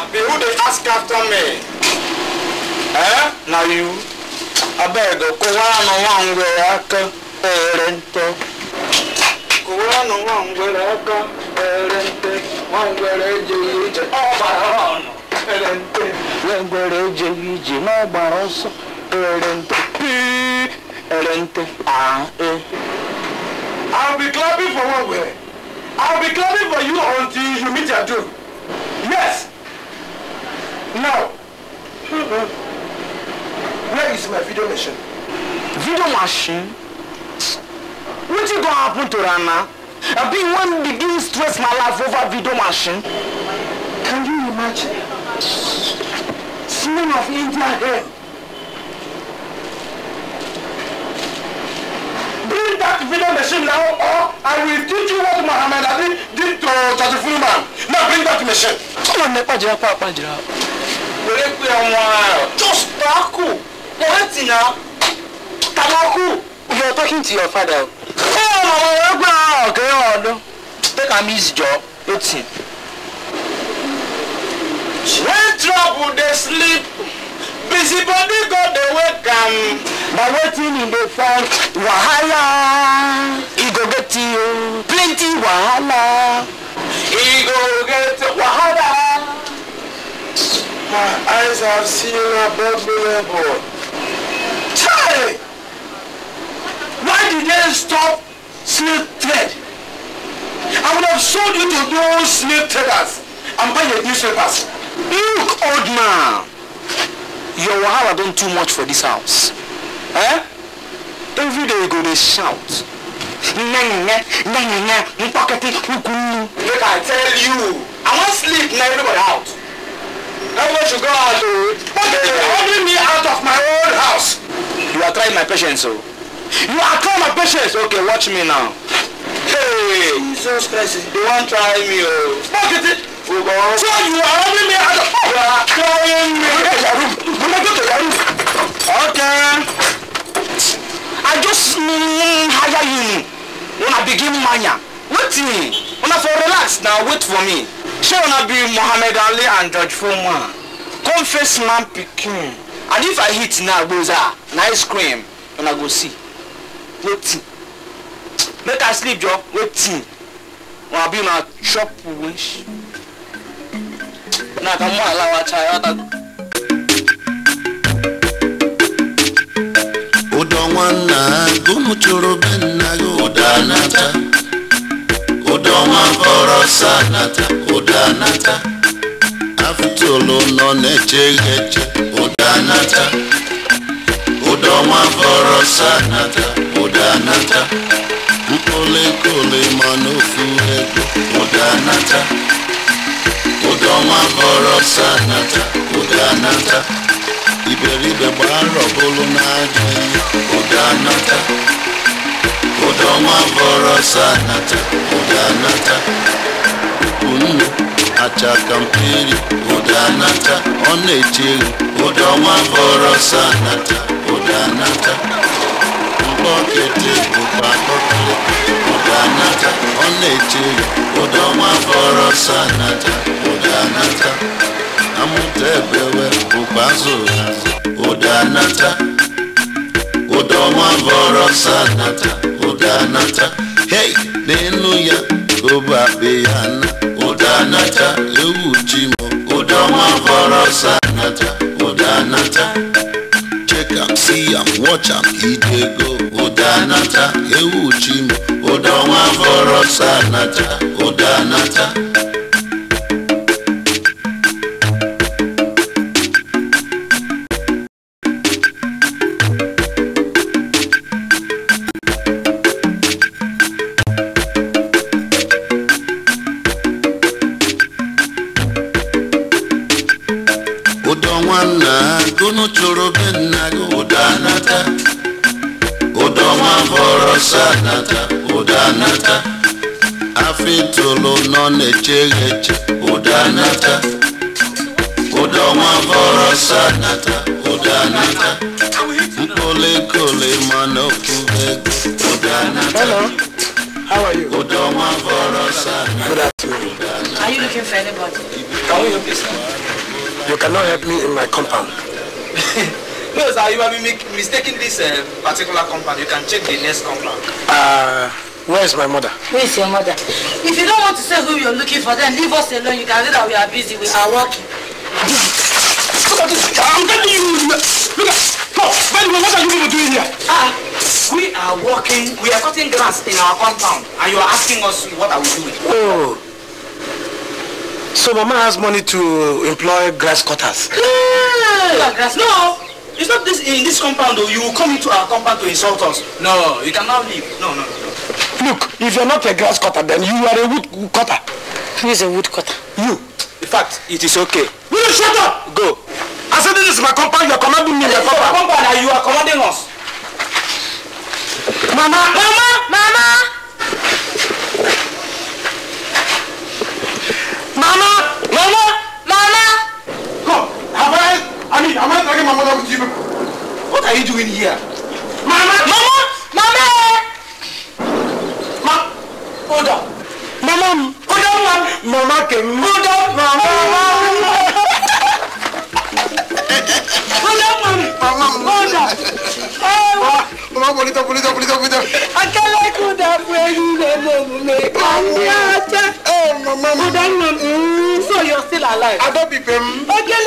abi who dey ask after me eh na you abeg kụwara nụ nwa ngwere aka ere nte kụwara nụ nwa ngwere aka ere nte nwa ngwere ije ọgbara ọnụ ere nte nwa ngwere ije n'ọgbara ọsọ ere pii ere nte aa e. I'll be clapping for one way. I'll be clapping for you until you meet your doom. Yes, Now, hmm, where is my video machine? Video machine? What is going to happen to Rana? I've been one begin stress my life over video machine. Can you imagine? Slim of India here. Bring that video machine now or I will teach you what Muhammad Ali did to Chachifuman. Now bring that machine. Come on, Nepa Jirapa, Jirapa wèrè pé àwọn just tabaku mo wá tì náà tabaku. you are talking to your father. ṣé ọmọ wẹ̀rẹ̀ gbà ọ̀gẹ́ ọ̀dọ́ take am easy jọ ó tì. when trouble dey sleep busy body go dey wake am. na wetin e dey find wahala e go get you plenty wahala. e go get wahala my eyes have seen above me level. Chai! Why did they stop slave trade? I would have sold you to those slave traders and buy your newspapers. Look, old man. Your Wahala done too much for this house. Eh? Every day you go, they shout. Make I tell you, I want sleep now everybody out. That's what you got out to. What is holding me out of my own house? You are trying my patience, so. Oh. You are trying my patience. Okay, watch me now. Hey, Jesus Christ, you won't try me, oh. Fuck it. So you are holding me out of... You are trying me. Go to your room. Go to your room. Okay. I just mm, hire you. When I begin mania. wetin una for relax na wait for me shey una be mohammed ali and george foreman come face man pikin and if i hit na gboza na ice cream i go see wetin make i sleep jo wetin i be una chop wish na kamo alawa chayota. ụdọ nwanna gụmụ chụrụ be nna gị ụda na-ata Joma mboro sana ta kudana ta Afutulu none chegeche kudana ta Udoma mboro sana ta kudana ta Mpole kule manufu edu kudana ta Udoma mboro sana ta kudana ta Iberibe baro bulu na jini kudana ta ụdọ nwa bọrọ sanata ụdanata unu achaka mperi ụdanata ọ na-echeghi ụdọ bọrọ sanata ụdanata mkpọkịtị ọ na bọrọ sanata amụta bụkwa ọnwa bọrọ oda anata hey n'elu ya obabe ya oda anata ewu ji m ụdọnwa bọrọ oda anata check am see am watch am oda anata ewu ji m ụdọnwa bọrọ oda anata. sanata udanata afitolo nọ udanata udonwa sanata udanata mkpolekole mana udanata udonwa vọrọ sanata Are you looking for anybody? Can we help you, You cannot help me in my compound. No, sir, uh, you are be mistaking this uh, particular compound. You can check the next compound. Uh, where is my mother? Where is your mother? If you don't want to say who you're looking for, then leave us alone. You can see that we are busy. We are working. Look at this. I'm telling you. Look at No, by what are you people doing here? Ah, we are working. We are cutting grass in our compound. And you are asking us what are we doing? Oh. So mama has money to employ grass cutters. Yeah. Grass. No, It's not this in this compound though. You will come into our compound to insult us. No, you cannot leave. No, no, no. Look, if you're not a grass cutter, then you are a wood cutter. Who is a wood cutter? You. In fact, it is okay. Will you shut up? Go. I said this is my compound. You are commanding me in your compound. compound and you are commanding us. Mama! Mama! Mama! Mama! Mama! mean, I'm not dragging my mother with you What are you doing here? Mama! Mama! Mama! Ma! Hold on. Mama! Hold on, Mama! Mama came. Hold on, Mama! Hold on, Mama! Hold on! Mama, hold it up, pull it up, hold it up, pull it up. I can't let you down where you live, Mama. Hey, Mama. Hold on, Mama. Mm, so you're still alive? I don't be, Mama. Okay,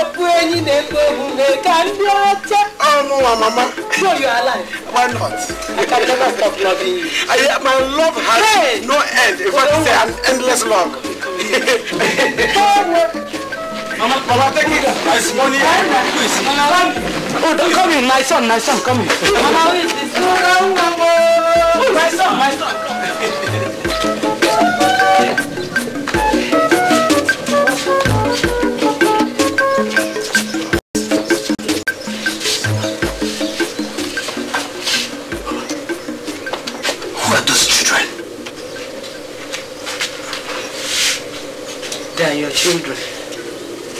ọ̀pù ẹyin lè gbé ká ní ọjọ́. ọmọ wa mama. So you are alive. why not. I can never stop loving you. I, my love has hey. no end in fact it's an endless love. mama mama take it as money please. oh don come in my son my son come in. mama who is this. Oh, oh, my son my son. children.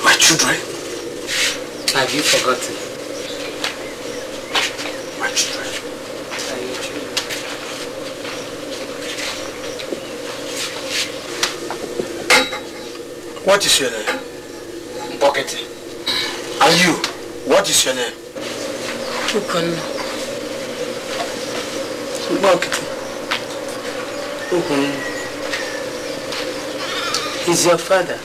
My children? Have you forgotten? My children. Are your What is your name? Bucket. And you, what is your name? Ukon. Bucket. Ukon. Is your father?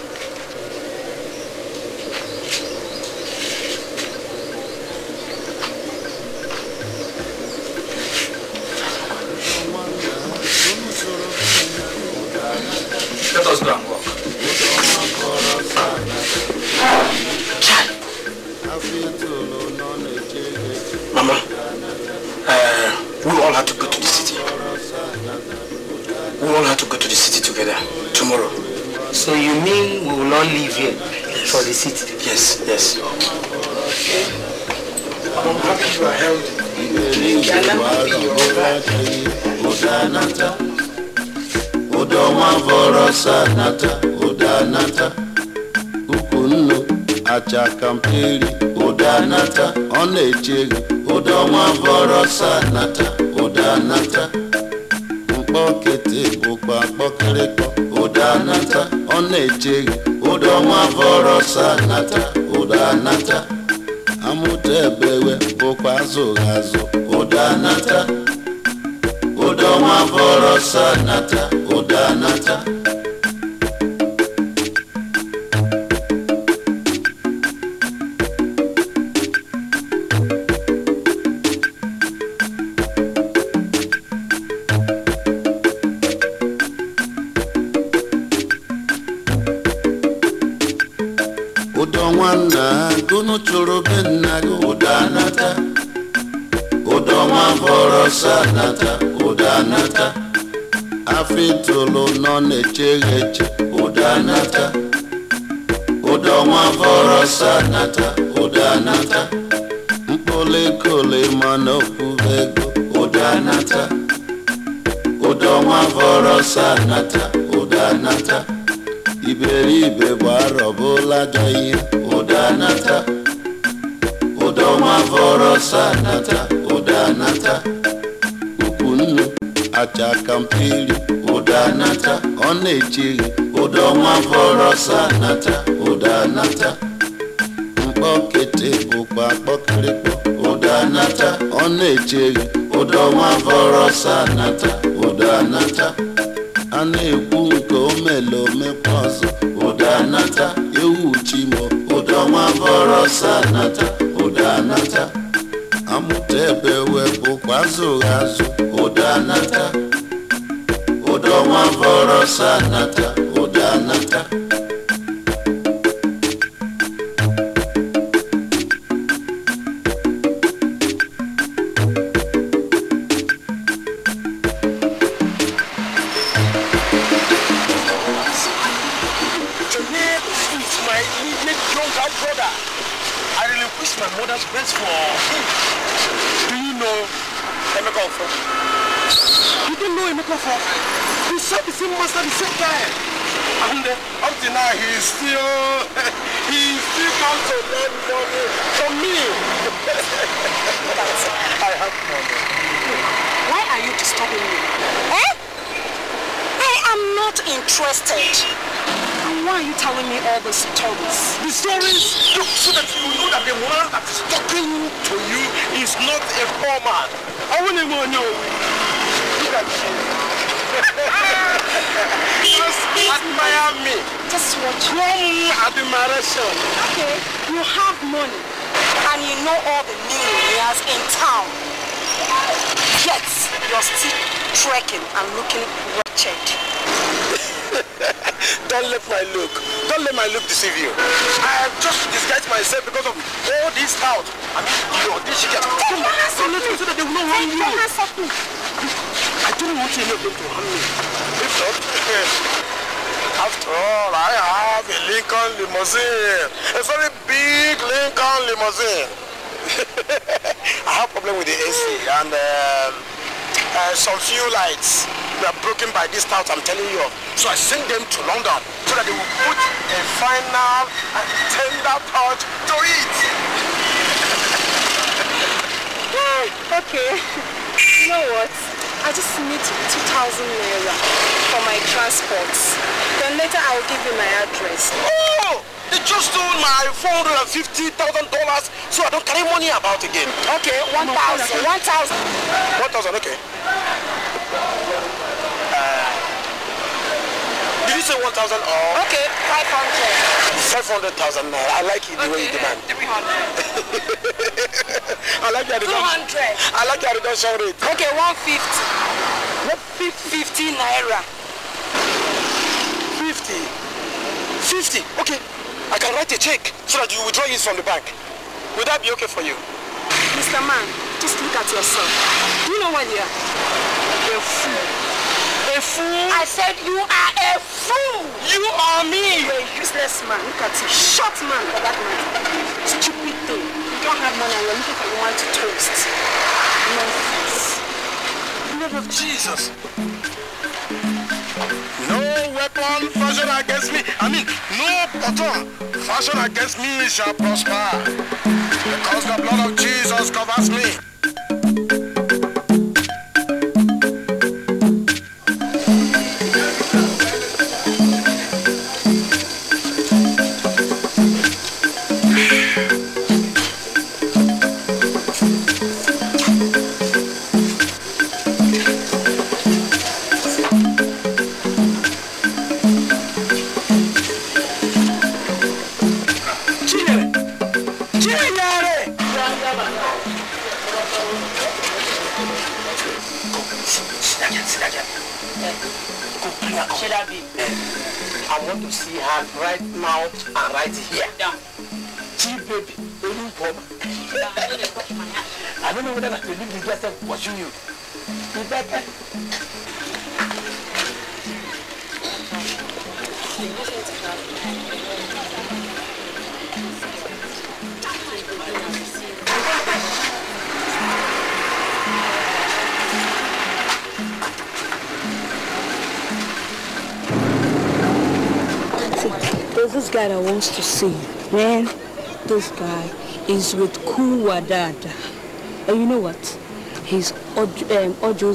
nata ụda nata ukwu nnu acha kamperi ụda nata ọ na-eche gị ụda ọnwa bọrọsa nata ụda nata mkpọkịtị bụkwa mkpọkịrịkọ ụda nata ọ na-eche gị ụda ọnwa bọrọsa nata ụda nata amụta ebewe bụkwa azụ azụ ụda nata ụda ọnwa bọrọsa nata ụda nata n'ata ụda n'ata afọ itolu nọ na-eche ụda n'ata ụda ọnwa bọrọ n'ata ụda n'ata mkpụrụ ma mana ego ụda n'ata ụda ọnwa bọrọ n'ata anata ụda anata iberibe gbara ọbụla gaghị ụda nata ụda ọnwa bọrọ sa n'ata ụda n'ata. acha kampili ụda nata ọ na-echeghị ụda ọnwa bọrọsa nata ụda nata mkpọkete bụkwa kpọkịrịkpọ ụda nata ọ na-echeghị ụda ọnwa bọrọsa nata ụda nata a na-ekwu nke omele omekwa ọzọ ụda nata ewu chimo ụda ọnwa bọrọsa nata ụda nata utepe wepo kwazo ghazo udanata udomwa vorosanata udanata, udanata. crazy, oh. He still comes to lend money from me. I have money. Why are you disturbing me? Eh? I am not interested. Why are you telling me all the stories? The stories? Look, so that you know that the man that is talking to you is not a poor man. I want to know. Look at you. Ah! Just admire me. Just watch. Okay, you have money and you know all the millionaires in town. Yet, you're still trekking and looking wretched. Don't let my look. Don't let my look deceive you. I have just disguised myself because of all this out. I mean, your this shit. Take your hands off me. So that they will not harm you. Take your hands off me. I don't want any of them to harm me. If not, After all, I have a Lincoln limousine, a very big Lincoln limousine. I have problem with the AC and um, uh, some few lights were broken by this drought. I'm telling you of. So I sent them to London so that they will put a final and uh, tender touch to it. okay, you know what? I just need 2,000 naira for my transports and later I will give you my address. Oh! They just stole my $450,000 so I don't carry money about again. Okay, 1,000. 1,000. 1,000, okay. Uh, did you say 1,000 or? Okay, 500. 500,000 I like it the okay, way you demand. 300. I like your 200. I like your reduction rate. Okay, 150. 150 naira. fifty fifty okay i can write a check so that you withdraw it from the bank will that be okay for you. mr man just look at yourself do you know what you are a fool a fool. i said you are a fool. you are me. You're a useless man look at you short man for that matter stupid thing you don't have money and you're looking for woman to toast nonsense. blood of jesus. No weapon fashioned against me, I mean, no button fashioned against me shall prosper. Because the blood of Jesus covers me. see, man, this guy is with Kuwadada. And you know what? He's Ojo, um, Ojo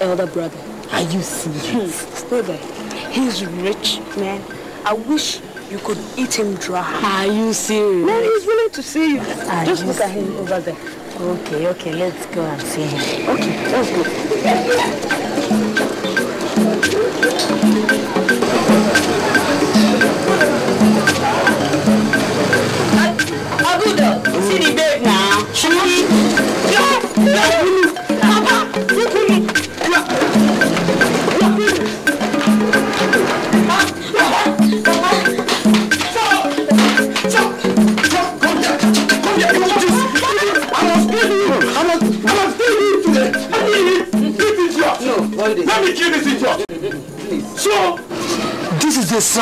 elder brother. Are you serious? Hmm. Stay there. He's rich, man. I wish you could eat him dry. Are you serious? Man, he's willing to see you. Are Just you look serious? at him over there. Okay, okay, let's go and see him. Okay, let's go.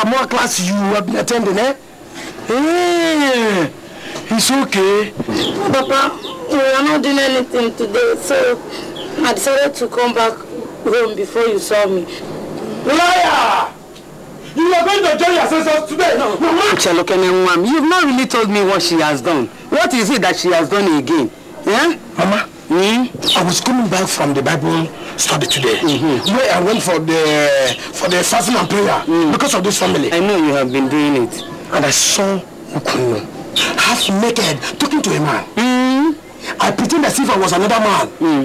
More class you have been attending, eh? Hey, eh, it's okay. Papa, we are not doing anything today, so I decided to come back home before you saw me. Liar! You are going to join your sisters today. No. Chelokene Mwam, you've not really told me what she has done. What is it that she has done again? Yeah? I was coming back from the Bible study today, mm-hmm. where I went for the for the fasting and prayer mm. because of this family. I know you have been doing it, and I saw Ukunu half naked talking to a man. Mm. I pretend as if I was another man mm.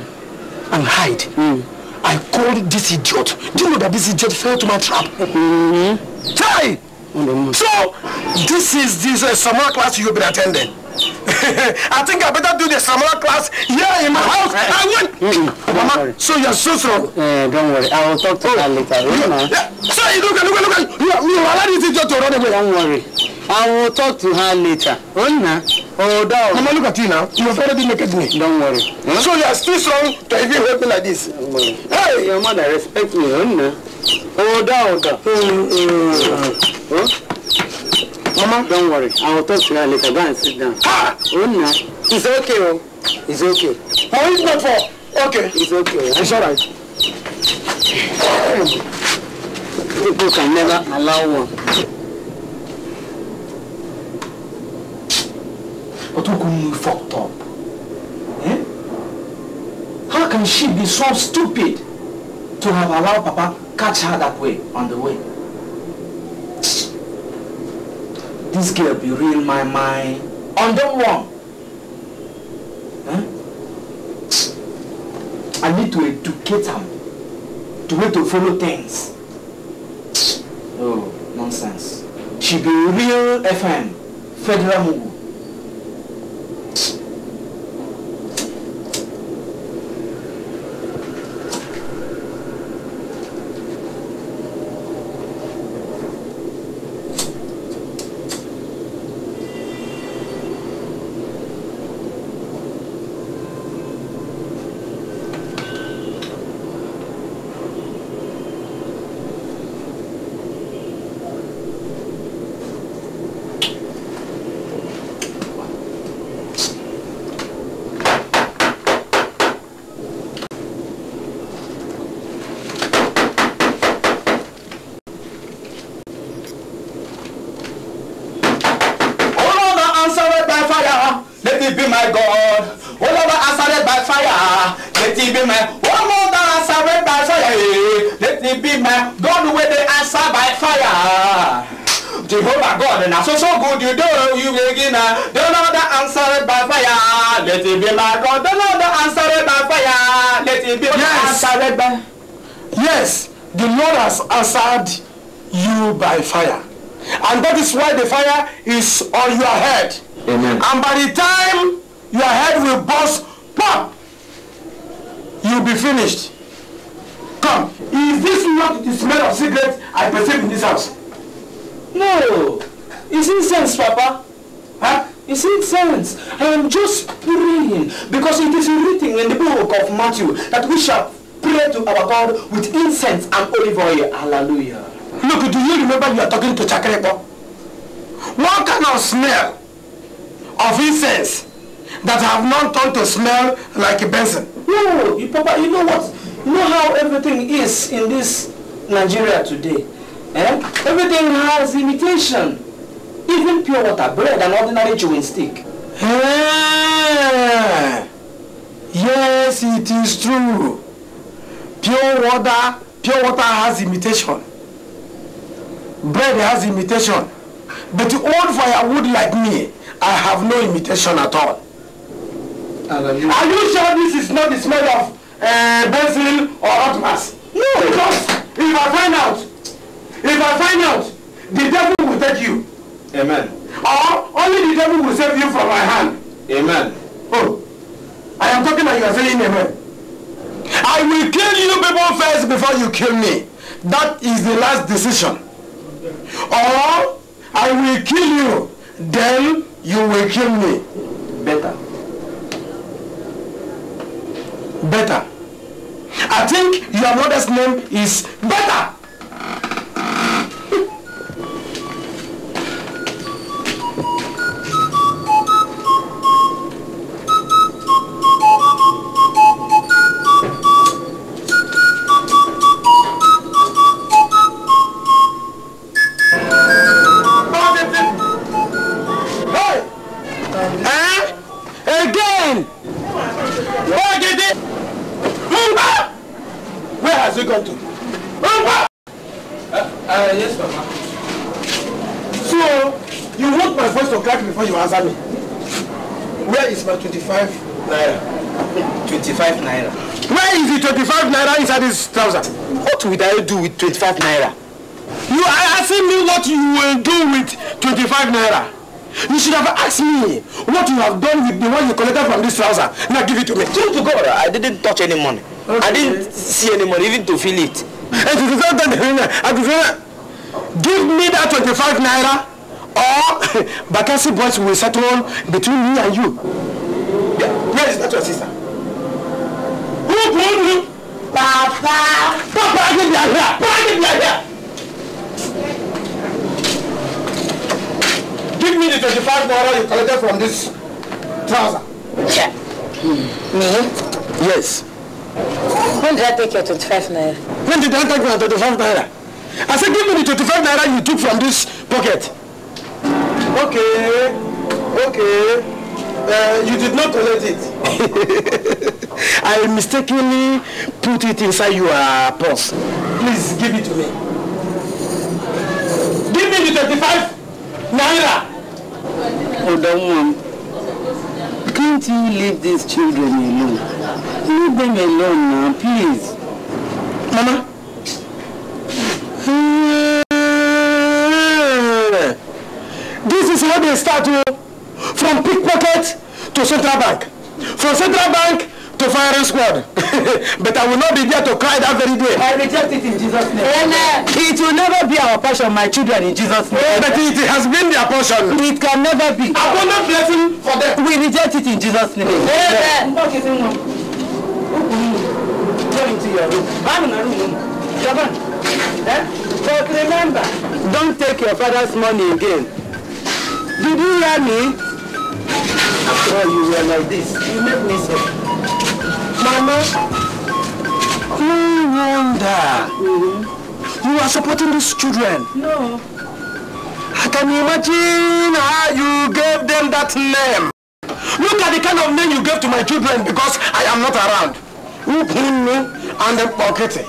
and hide. Mm. I called this idiot. Do you know that this idiot fell to my trap? Mm-hmm. Hey! Mm-hmm. So this is this uh, summer class you've been attending. I think I better do the Samara class here in my ah, house. I went. Mm, Mama, so you're so strong. Uh, don't worry. I will talk to oh. her eh, later. You yeah. So you look at, look at, look at. You, you already this your to run away. Don't worry. I will talk to her later. Ona. Oh, oh down. Mama, look at you now. You have already naked me. Don't worry. Huh? So you are still strong to even help me like this. Hey. Your mother, respect me. Ona. Oh, down. Oh, down. Mm, mm. Huh? Mama, don't worry. I'll talk to her later. Go and sit down. Ah! Oh, no. It's okay, oh. It's okay. How is my fault? Okay. It's okay. It's all right. People can never allow one. But Otoku, you fucked up. Eh? How can she be so stupid to have allowed Papa catch her that way on the way? this girl be real my mind on them one. Huh? I need to educate him. to way to follow things. Oh, nonsense. She be real FM, Federal Mugu. we shall pray to our God with incense and olive oil. Hallelujah. Look, do you remember you are talking to Chakrepo? What kind of smell of incense that have not turned to smell like a benson? No, you, Papa, you know what? You know how everything is in this Nigeria today? Eh? Everything has imitation. Even pure water, bread, and ordinary chewing stick. Hey. Eh. Yes, it is true. Pure water, pure water has imitation. Bread has imitation. But old firewood like me, I have no imitation at all. Are you sure this is not the smell of uh, basil or hot mass? No. Because if I find out, if I find out, the devil will take you. Amen. Or only the devil will save you from my hand. Amen. Oh. I am talking and you are saying amen. I will kill you people first before you kill me. That is the last decision. Or I will kill you, then you will kill me. Better. Better. I think your mother's name is Better. 25 naira. 25 naira. Where is the 25 naira inside this trouser? What would I do with 25 naira? You are asking me what you will do with 25 naira. You should have asked me what you have done with the one you collected from this trouser. Now give it to me. True to God, I didn't touch any money. Okay. I didn't see any money, even to feel it. Give me that 25 naira or Bakassi boys will settle between me and you where is that your sister? Who told you? Papa. Papa, I think they are here. Papa, I think they are here. Give me the 25 naira you collected from this trouser. Hmm. Me? Yes. When did I take your 25 naira? When did I take my 25 naira? I said give me the 25 naira you took from this pocket. Okay. Okay. Uh, you did not collect it. I mistakenly put it inside your purse. Please give it to me. Give me the 35 naira. Hold on, mom. Can't you leave these children alone? Leave them alone now, please. Mama. This is how they start to... Oh from pickpocket to central bank, from central bank to firing squad. but I will not be there to cry that very day. I reject it in Jesus' name. Amen. It will never be our portion, my children, in Jesus' name. But it has been their portion. It can never be. Abundant blessing for them. We reject it in Jesus' name. Amen. Eh? But remember, don't take your father's money again. Did you hear me? Well, you were like this. You made me so. Mama, no wonder. Mm-hmm. You are supporting these children. No. I can imagine how you gave them that name. Look at the kind of name you gave to my children because I am not around. Who me and Okete.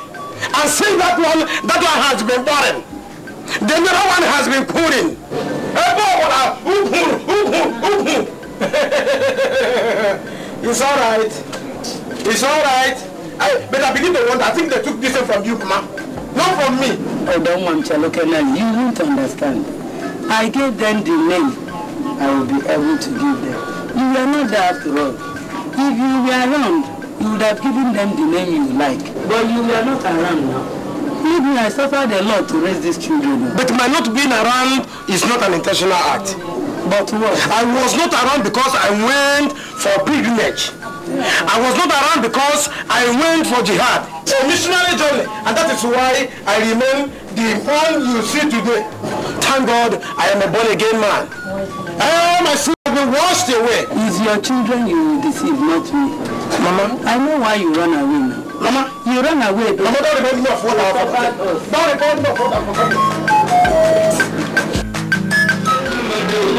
And see that one, that one has been born. The other one has been put in. it's all right. It's all right. I, but I begin to wonder. I think they took this from you, ma. Not from me. Oh, don't want to look at them. You won't understand. I gave them the name I will be able to give them. You were not there after all. If you were around, you would have given them the name you like. But you were not around now. Maybe I suffered a lot to raise these children. But my not being around is not an intentional act. But what? I was not around because I went for pilgrimage. I was not around because I went for jihad. A missionary journey. And that is why I remain the one you see today. Thank God I am a born-again man. All eh, my sins have been washed away. It's your children you deceive, not me. Mama? I know why you run away now. Mama? You run away. Though. Mama, don't remind me of what I have Don't remind me of what I have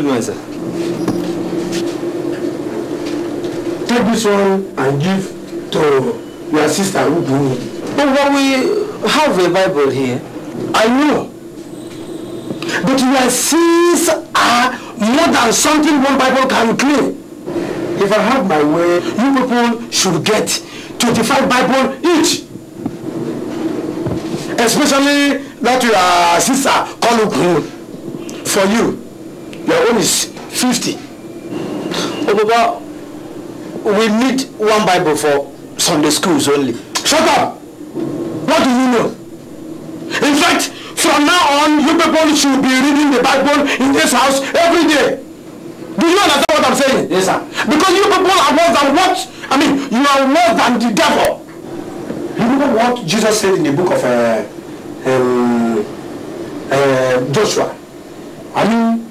myself. Take this one and give to your sister who do it. But what we have a Bible here. I know. But your sins are more than something one Bible can claim. If I have my way, you people should get 25 Bible each. Especially that your sister called for you. Your own is fifty. Obaba, we need one Bible for Sunday schools only. Shut up! What do you know? In fact, from now on, you people should be reading the Bible in this house every day. Do you understand what I'm saying? Yes, sir. Because you people are worse than what? I mean, you are worse than the devil. You know what Jesus said in the book of uh, um, uh, Joshua? I mean,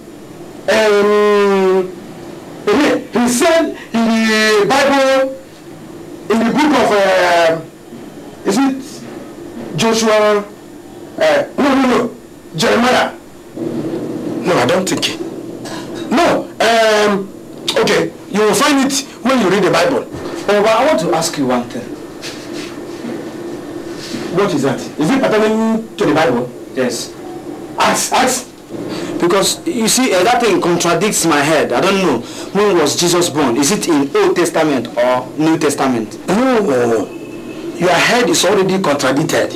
um, he said in the Bible, in the book of, uh, is it Joshua? Uh, no, no, no, Jeremiah. No, I don't think. it. No, um, okay, you will find it when you read the Bible. Oh, but I want to ask you one thing. What is that? Is it pertaining to the Bible? Yes. Ask, ask. Because you see, uh, that thing contradicts my head. I don't know when was Jesus born. Is it in Old Testament or New Testament? No, no, no. Your head is already contradicted.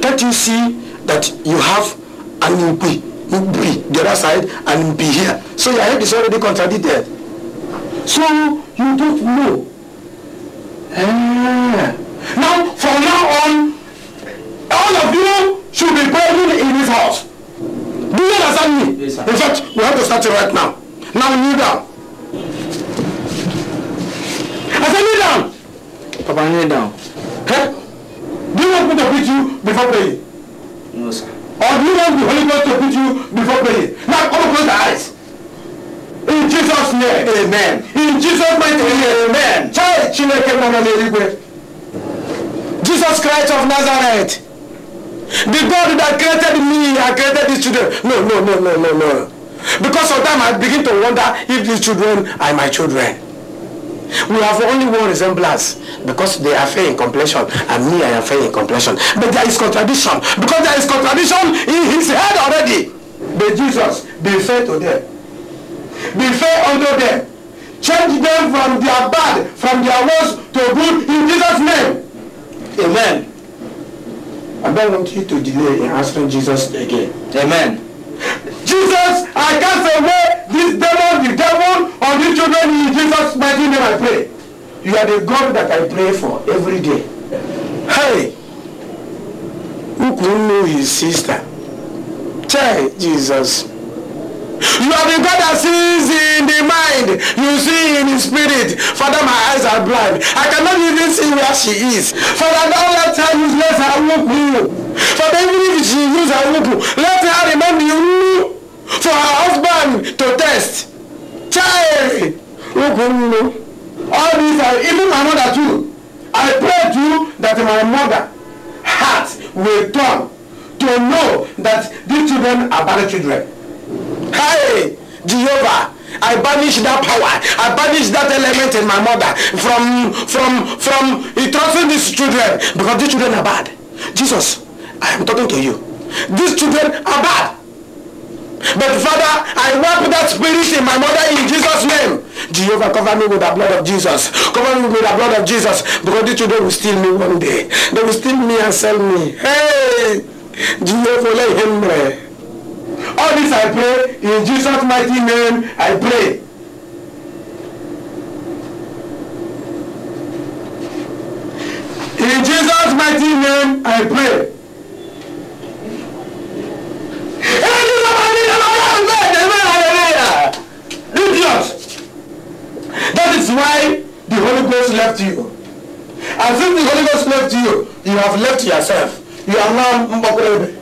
Can't you see that you have an impi, the other side and be here? So your head is already contradicted. So you don't know. Ah. Now, from now on, all of you should be buried in this house. Do you understand me? In fact, we have to start it right now. Now kneel down. I said kneel down. Papa, kneel down. Hey, do you want me to beat you before praying? No, sir. Or do you want the Holy Ghost to beat you before praying? Now come close your eyes. In Jesus' name, amen. In Jesus' mighty name, amen. Child, Chineke, Mama, Jesus Christ of Nazareth. The God that created me and created these children. No, no, no, no, no, no. Because sometimes I begin to wonder if these children are my children. We have only one resemblance because they are fair in complexion and me I am fair in complexion. But there is contradiction because there is contradiction in his head already. But Jesus, be fair to them. Be fair unto them. Change them from their bad, from their worst to good in Jesus' name. Amen. I don't want you to delay in answering Jesus again. Amen. Jesus, I cast away this devil, the devil, or these children in Jesus' mighty name I pray. You are the God that I pray for every day. Hey, who could know his sister? Tell Jesus. You are the God that sees in the mind. You see in the spirit. Father, my eyes are blind. I cannot even see where she is. Father, don't let her useless her whoop you. Father, even if she use her whoop, let her remember you for her husband to test. Child, all these are even my mother too. I pray to you that my mother heart will turn to know that these children are bad children. Hey, Jehovah, I banish that power. I banish that element in my mother from, from, from entrusting these children because these children are bad. Jesus, I am talking to you. These children are bad. But Father, I wipe that spirit in my mother in Jesus' name. Jehovah, cover me with the blood of Jesus. Cover me with the blood of Jesus. Because these children will steal me one day. They will steal me and sell me. Hey! Jehovah, let him pray. All this I pray in Jesus' mighty name. I pray. In Jesus' mighty name, I pray. That is why the Holy Ghost left you. And since the Holy Ghost left you, you have left yourself. You are now Mbokorebe.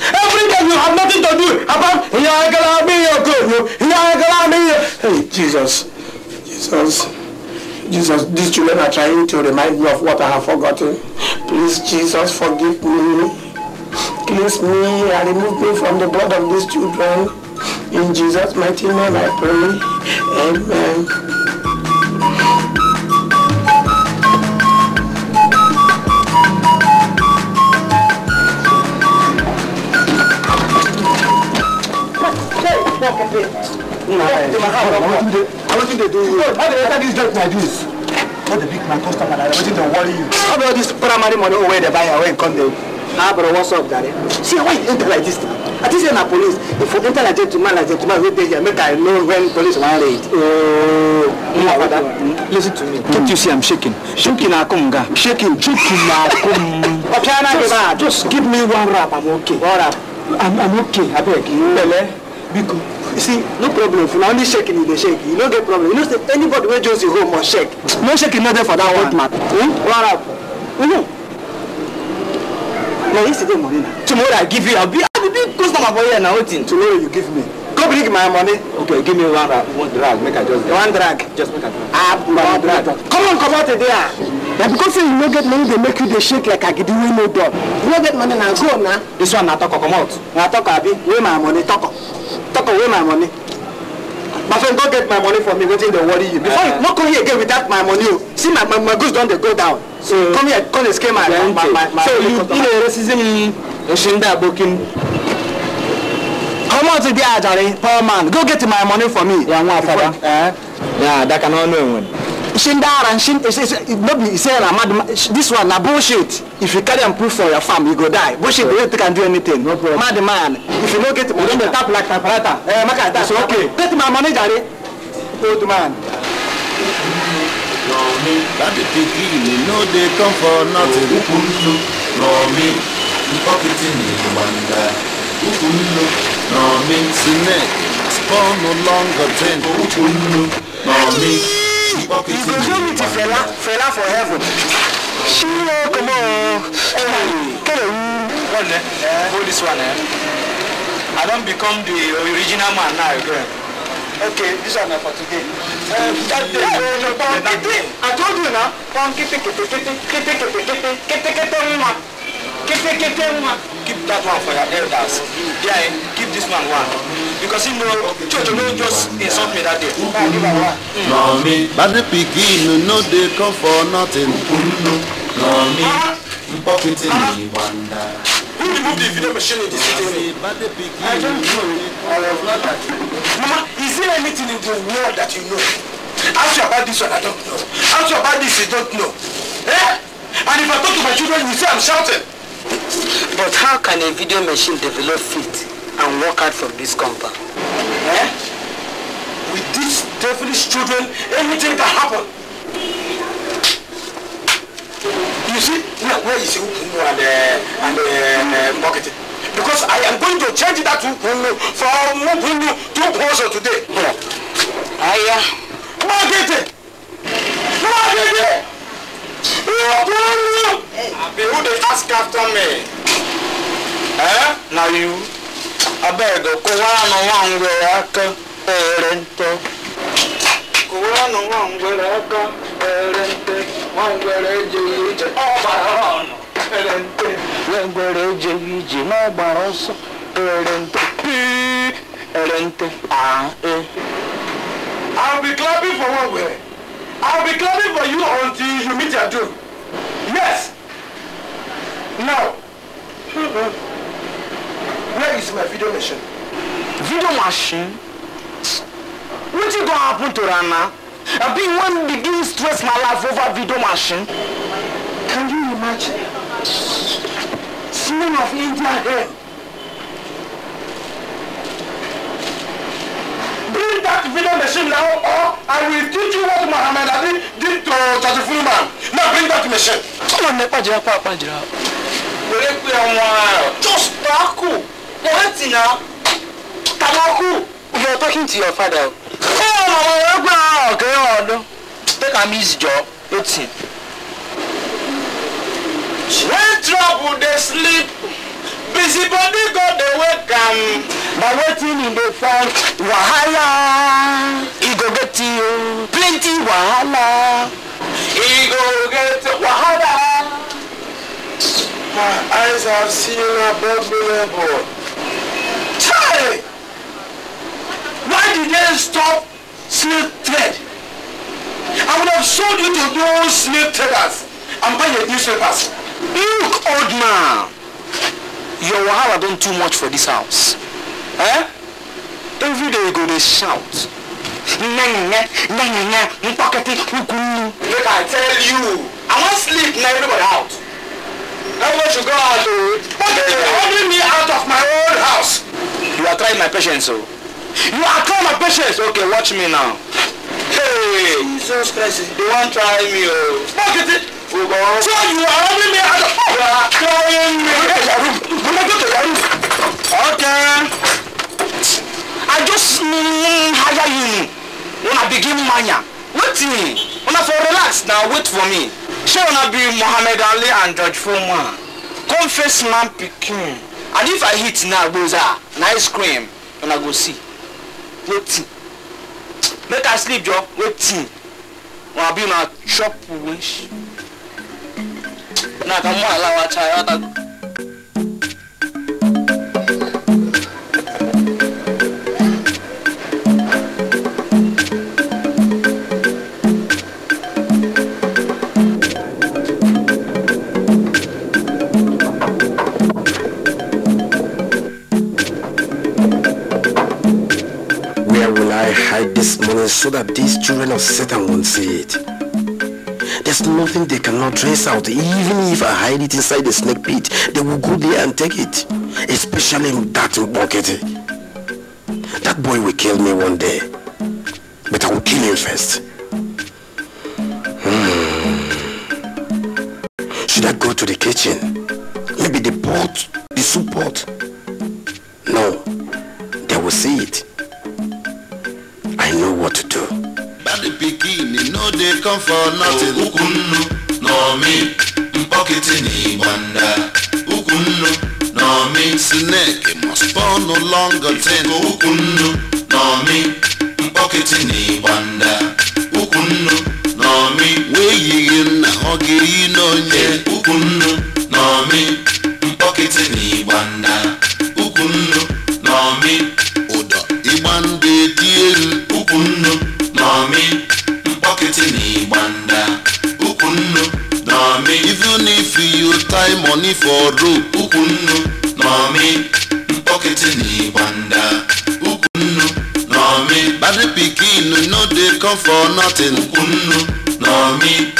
Every time you have nothing to do about are are gonna gonna be be your your. good. Hey, Jesus, Jesus, Jesus, these children are trying to remind me of what I have forgotten. Please, Jesus, forgive me. Cleanse me and remove me from the blood of these children. In Jesus' mighty name I pray. Amen. Now, come here. I want you to do How do you this job like this? Not the big man, customer, I want worry you. How about this primary money where they buy and come there? Ah, bro, what's up, daddy? See, why you enter like this? I think you're not police. If you enter like gentleman, like gentleman, wait here. make I know when police want raid. Oh, no, brother. Listen to me. Don't you see I'm shaking? Shaking, akunga. Shaking, shaking, akunga. just, give me one rap, I'm okay. One rap. I'm, I'm okay, I beg. Bele biko you see no problem for na only shaking you dey shake you no get problem you know say anybody wey just dey home must shake no shaking no dey for that one man hmm? wara know. na yesterday morning na tomorrow i give you i be i be big customer for here na wetin tomorrow you give me go bring my money. okay give me one rag uh, one drag make i just get. one drag just make i just. ah one drag. come on comot today ah. na because say you no get money dey make you dey shake like agidi wey no dull you no get money na go na. this one na talk, toko comot. na talk, abi wey my money toko. Talk away my money. My friend, go get my money for me waiting they worry you. Before uh, uh-huh. you no come here again without my money. You. Oh. See my, my, my goods don't they go down. So come here, come and scare my, my, my, my, my So you in a racism Oshinda Bokin. Come on to the Ajari, poor man. Go get my money for me. Yeah, one father. Uh, Yeah, that can all know one. Shindara and Shin, eh, no be I'm mad. this one, now bullshit. If you carry and proof for your farm, you go die. Bullshit, yeah. you can do anything. No problem. Mad man, if you don't get, you don't tap like tapalata. Eh, maka, that's okay. Get my money, manager, old man. That the piggy, you know they come for nothing. Romi, pocketing the wonder. Ukunlu, Romi, Sinek, spawn no longer drink. Ukunlu. Mọ̀mí pọ́kìtì mi. Ìgbésẹ̀ mi ti fẹ̀lá fẹ̀lá for heaven. Ṣé o kò mọ̀ ọ́ kẹ̀lẹ̀ wú? hold this one. Eh? I don't become the original man now again. Okay, this one for today. Pọ̀nkìtì, I told you na, pọ̀nkìtì kìtìkìtì kìtìkìtì kìtìkìtì mma ketekete one keep that one for your elders Yeah, keep this one one because he know you know, just insult me that day. Mọ̀mí. Bàdé pikin no dey come for nothing. Mọ̀mí. Mpọ́kìtì ni wàndà. Who removed the video machine in the city? I don't know. I was not Mama, is there anything in the world that you know? Ask you about this one, I don't know. Ask you about this, you don't know. Eh? And if I talk to my children, you say I'm shouting. But how can a video machine develop feet and work out from this compound? Eh? With these devilish children, anything can happen. You see, now where is Ukumu and, uh, and uh, uh marketing? Because I am going to change that Ukumu from Ukumu to Ukumu today. Yeah. Aya. Marketing! Marketing! Abi, who dey ask after me? Eh? Na you? Abeg, kụwara nụ nwa ngwere aka ere nte. Kụwara nụ nwa ngwere aka ere nte. Nwa ngwere ejeghị ije n'ọgbara ọnụ ere nte. Nwa ngwere ejeghị ije n'ọgbara ọsọ ere nte. Pii ere nte. Ah, eh. I will be clapping for one ngwere. I'll be coming for you until you meet your doom. Yes. Now, where is my video machine? Video machine? What is going to happen to Rana? I've been one begin stress my life over video machine. Can you imagine? Smell of India here. bring that video machine now or I will teach you what Muhammad Ali did to Charlie Fullman. Now bring that machine. Tọ́lọ̀ ní pàjìrà pa jira Wèrè pé ọmọ ẹ̀ just takù. Mo hẹ́ tì náà. Tabaku. You are talking to your father. Oh, ọmọ ọmọ ẹgbẹ́ ọ̀gẹ́ ọ̀dọ́? Take am easy jọ, eighteen. When trouble they sleep busy body go dey wake am but wetin e dey find wahala e go get you plenty wahala e go get wahala. my eyes have seen above me level. Chai! Why did they stop slave trade? I would have sold you to those slave traders and buy your newspapers. Look, old man your wahala don too much for this house eh every day you go dey shout nyanya nyanya nkpọkịtị ukwunnu. make i tell you i wan sleep na everybody out. everybody should go out o. but they dey ordering me out of my own house. you are trying my patience o. Oh. you are trying my patience. okay watch me now. hey jesus christ you wan try me o. Oh. nkpọkịtị. So you are robbing me out of You are carrying me to your room. You may go to your room. Okay. I just mean hire you. When I begin mania. Waiting. When I for relax now, wait for me. She wanna be Muhammad Ali and George Foreman. Confess man picking. And if I hit now, goes ah, ice cream. When I go see. Waiting. Make I sleep, Joe. Waiting. When I be my chop wish. Where will I hide this money so that these children of Satan won't see it? There's nothing they cannot trace out. Even if I hide it inside the snake pit, they will go there and take it. Especially that bucket. That boy will kill me one day. But I will kill him first. Hmm. Should I go to the kitchen? Maybe the pot, the soup pot. No, they will see it. I know what to do. Piggy, e no dey come for nothing ukwu nnu na omi mkpọkịtị na igbanda ukwu nnu na omi snake must born no longer ten ukwu nnu na omi mkpọkịtị na igbanda ukwu nnu na omi wee nna ọ ga-eyi n'onye ukwu nnu na omi na igbanda money for road ukwunnu nomi pocketing ni gbanda ukwunnu nomi bad pikin no dey come for nothing ukwunnu nomi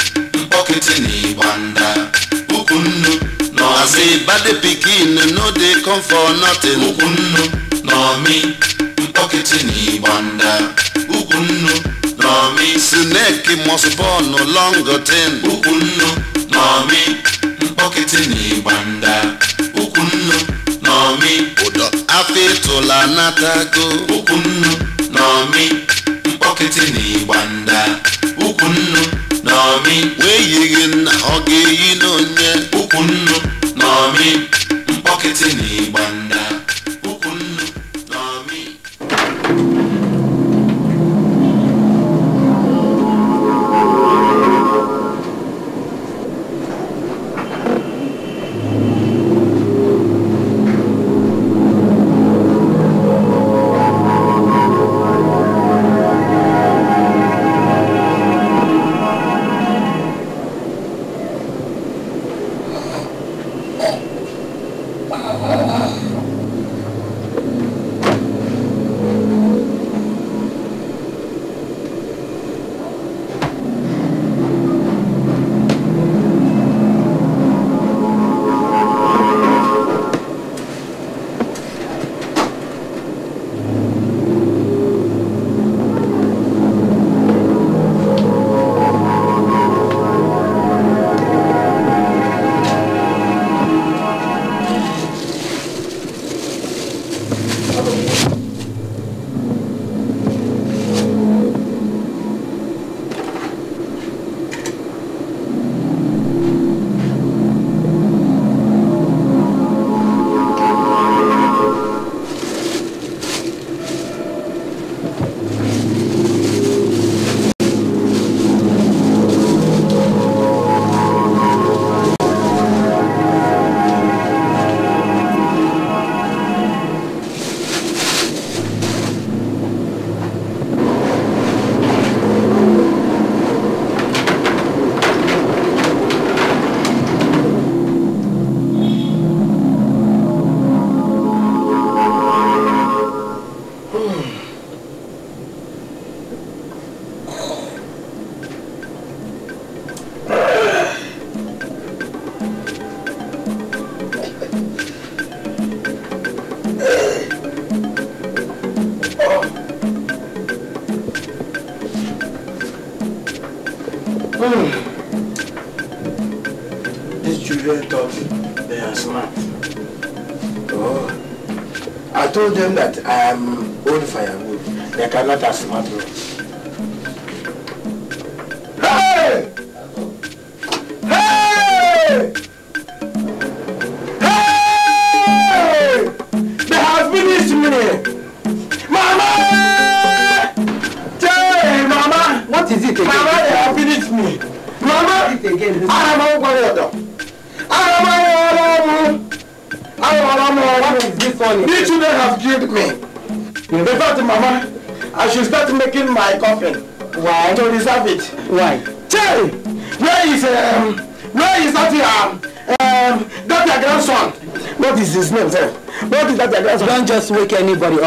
pocketing ni gbanda ukwunnu nomi say bad pikin no dey come for nothing ukwunnu nomi pocketing ni gbanda ukwunnu nomi snake must born long ten ukwunnu nomi. nkpọkịtị na ịgbanda okwunnu na omi ụdọ afọ ịtụla natago okwunnu na omi nkpọkịtị na ịgbanda okwunnu na omi wee yighị nna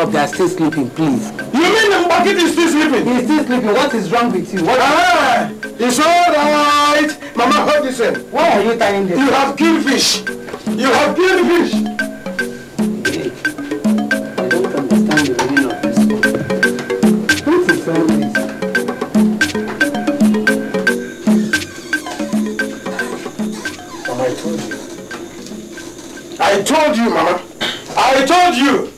up. They are still sleeping, please. You mean the market is still sleeping? He's still sleeping. What is wrong with you? What ah, it's all right. Mama Hudson. Why are you tying this? You have killed fish. You have killed fish. I don't understand the meaning of this. What is all this? I told you. I told you, Mama. I told you.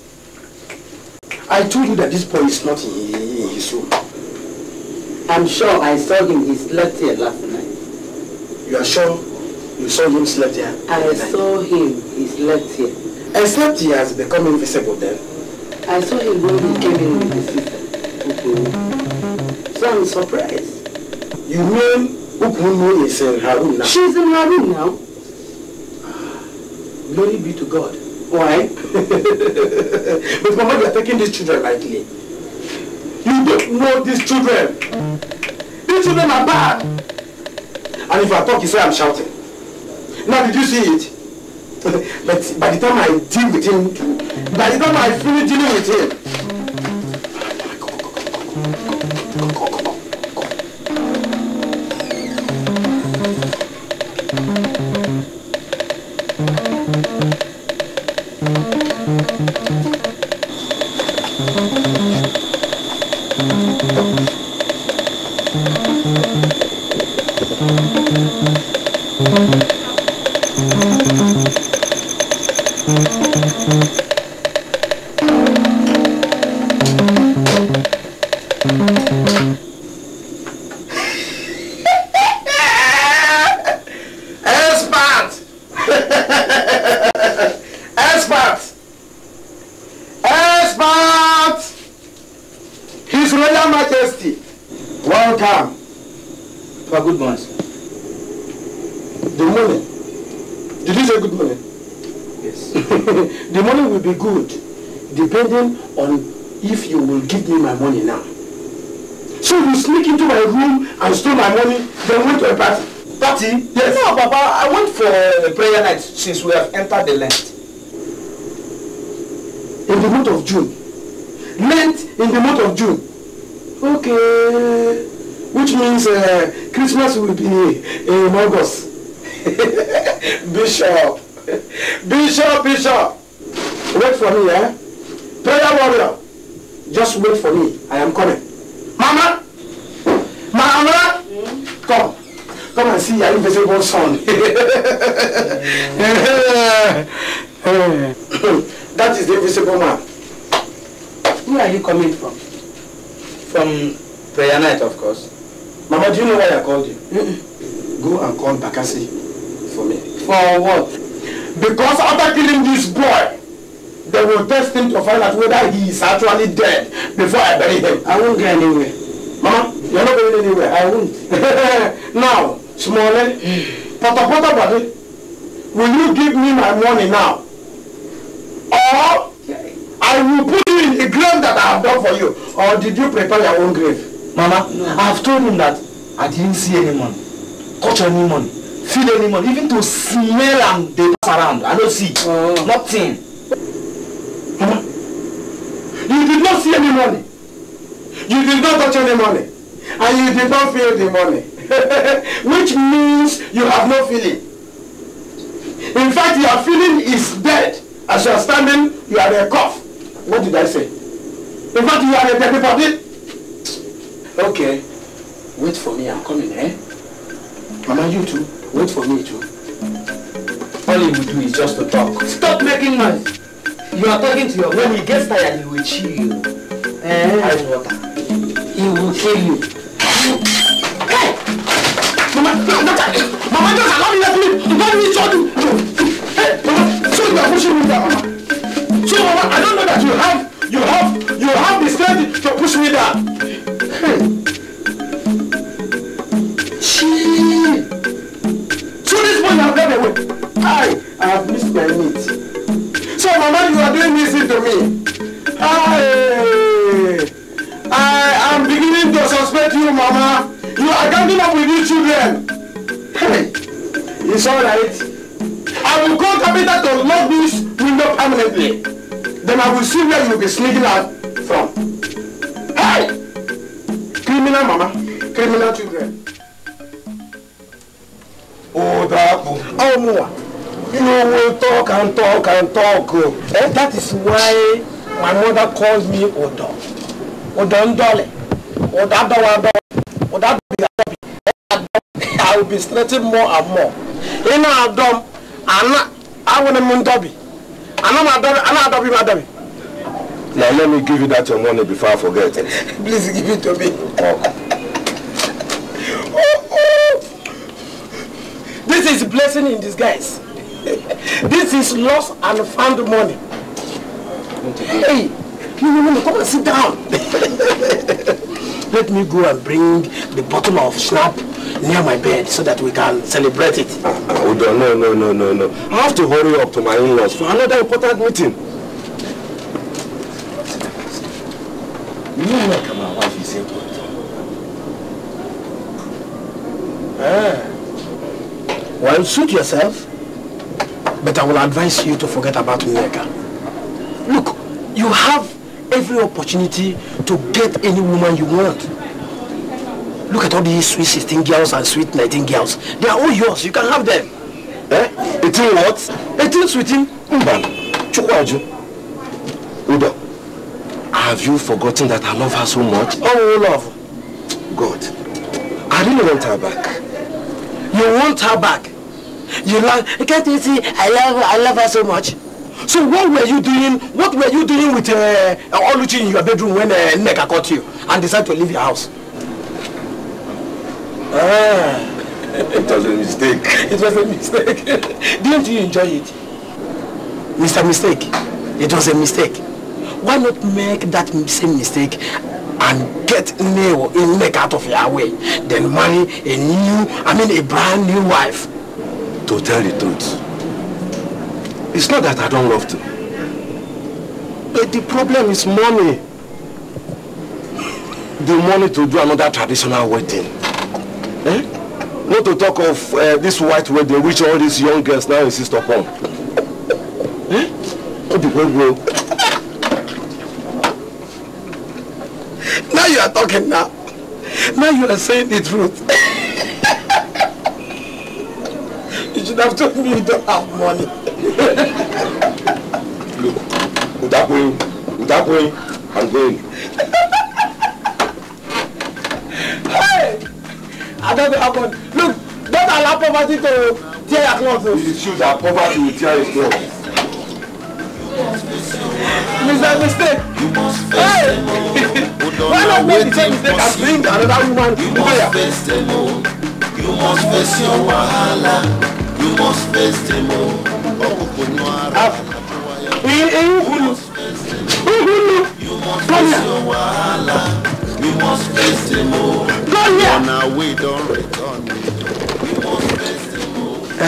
I told you that this boy is not in his room. I'm sure I saw him. He slept here last night. You are sure you saw him slept here? I saw him. He slept here. Except he has become invisible then. I saw him when he came in with his sister. So I'm surprised. You mean Ukunu is in her room now? She's in her room now. Ah. Glory be to God. Why? but Mama, you are taking these children lightly. You don't know these children. These children are bad. And if I talk, you say I'm shouting. Now, did you see it? but by the time I deal with him, by the time I finish dealing with him, since we have entered the Lent. In the month of June. Lent in the month of June. Okay. Which means uh, Christmas will be in August. Bishop. Bishop, Bishop. Wait for me, eh? Prayer warrior. Just wait for me. I am coming. Mama! Mama! Mm? Come. Come and see your invisible son. somebody dead before I bury him. I won't go anywhere. Mama, you're not going anywhere. I won't. now, Smalley, Pata Pata Body, will you give me my money now? Or I will put you in the grave that I have done for you. Or did you prepare your own grave? Mama, no. I have told him that I didn't see any money, touch any money, feel any money, even to smell and they pass around. I don't see. Oh. Nothing. any money. You did not touch any money. And you did not feel the money. Which means you have no feeling. In fact, your feeling is dead. As you are standing, you are a cough. What did I say? In fact, you are a dead body. Okay. Wait for me. I'm coming, eh? Mama, you too. Wait for me too. All you will do is just to talk. Stop making noise. You are talking to your When he gets tired, he will chill. you. Eh? Ice water. He will kill you. Hey! Mama, Mama, just allow me let me. Don't me show you. Hey, Mama, so you are pushing me down, Mama. So, Mama, I don't know that you have, you have, you have the strength to push me down. Hey. she. So this boy, you have got away. I, I have missed my meat. Mama, you are doing this to me. I, I am beginning to suspect you, Mama. You are coming up with these children. Hey, it's all right. I will call Tabitha to lock this window permanently. Then I will see where you will be sneaking out from. Hey! Criminal, Mama. Criminal children. Oh, that. Oh, more. You know, we talk and talk and talk. and That is why my mother calls me Odo. Odo Ndole. Odo Adowa Odo Adobi Adobi. I will be stretching more and more. You know I Ina Adom, Ana, Awone Mundobi. Ana Madobi, Ana Adobi Madobi. Now let me give you that your money before I forget Please give it to me. Oh. oh, oh. This is a blessing in disguise. this is lost and found money. Hey, no, no, no, come and sit down. Let me go and bring the bottle of snap near my bed so that we can celebrate it. hold oh, on, no, no, no, no, no. I have to hurry up to my in-laws for another important meeting. You know where come out wife is important. Ah. Well, suit yourself. But I will advise you to forget about Nneka. Look, you have every opportunity to get any woman you want. Look at all these sweet 16 girls and sweet 19 girls. They are all yours. You can have them. Eh? 18 what? 18 sweetin. Mban. Chukwaju. Udo. Have you forgotten that I love her so much? Oh, love. God. I really want her back. You want her back? You love, can't you see, I love, I love her so much. So what were you doing, what were you doing with uh, Oluchi in your bedroom when uh, Nneka caught you and decided to leave your house? Ah. It was a mistake. It was a mistake. Didn't you enjoy it? Mr. Mistake, it was a mistake. Why not make that same mistake and get Neo in Nneka out of your way, then marry a new, I mean a brand new wife? To tell the truth, it's not that I don't love to. But the problem is money. The money to do another traditional wedding. Eh? Not to talk of uh, this white wedding which all these young girls now insist upon. Eh? Not the problem. Now you are talking now. Now you are saying the truth. that told me you don't have money. Look, without going, without going, I'm going. hey, I don't know how much. Look, don't allow poverty to tear your clothes. It's true that poverty will tear his clothes. Mr. Mistake. Hey! Why not make the same mistake as bring another woman to prayer? You must face your wahala. You must face them all. Ọkùnkùn náà ara. Eyín kù ni. Eyín ni. You must face your wahala. You Ọ̀nà àwẹ̀ ìdán rẹ̀ tán You must face them all.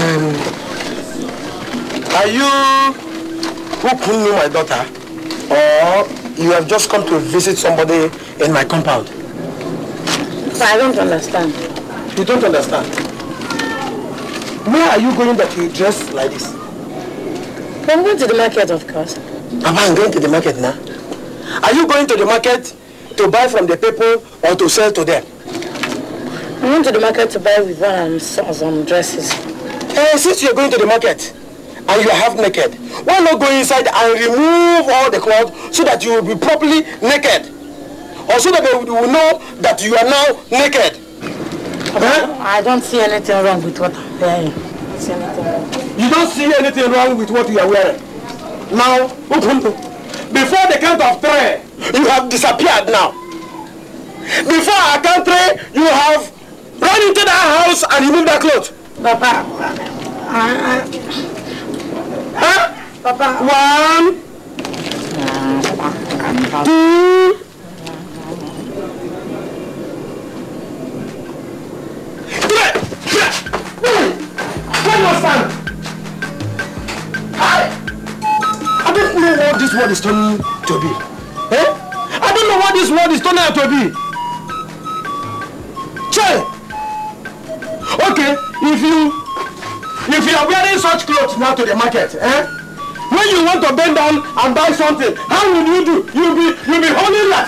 Are you Ukunnu, my daughter, or you have just come to visit somebody in my compound? But I don't understand. You don't understand? Where are you going that you dress like this? I'm going to the market, of course. Papa, I'm going to the market now. Are you going to the market to buy from the people or to sell to them? I'm going to the market to buy with one and some dresses. Hey, eh, since you're going to the market and you are half naked, why not go inside and remove all the clothes so that you will be properly naked? Or so that they will know that you are now naked? I don't see anything wrong with what I'm wearing. You don't see anything wrong with what you are wearing? Now, before the count of three, you have disappeared now. Before I count three, you have run into that house and removed that clothes. Papa, I, I... Huh? Papa. One. Two. I don't know what this world is turning to be. Eh? I don't know what this world is turning out to be. Che! Okay, if you if you are wearing such clothes now to the market, eh? When you want to bend down and buy something, how will you do? You'll be you'll be holding like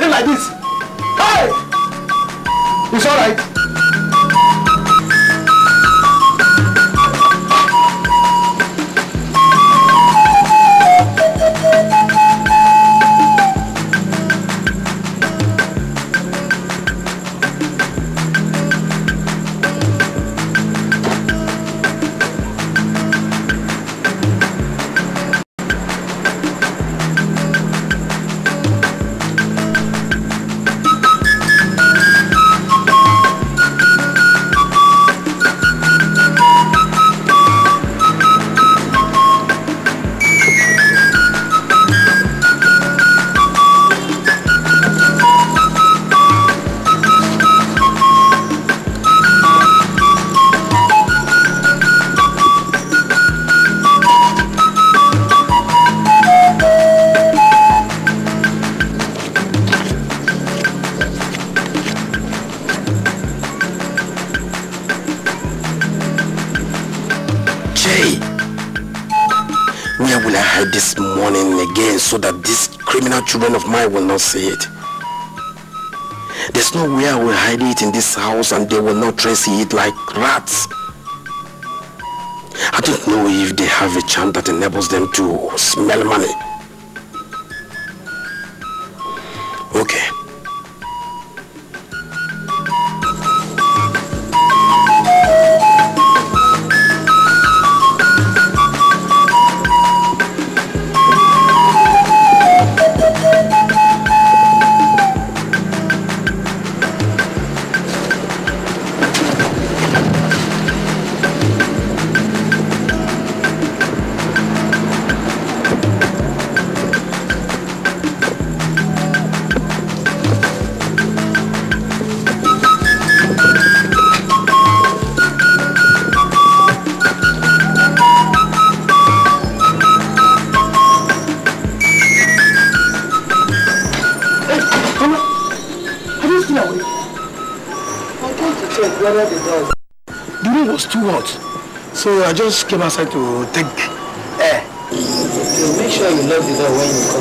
so that these criminal children of mine will not see it. There's no way I will hide it in this house and they will not trace it like rats. I don't know if they have a charm that enables them to smell money. I just came outside to take air. Eh. make sure you lock the door when you come.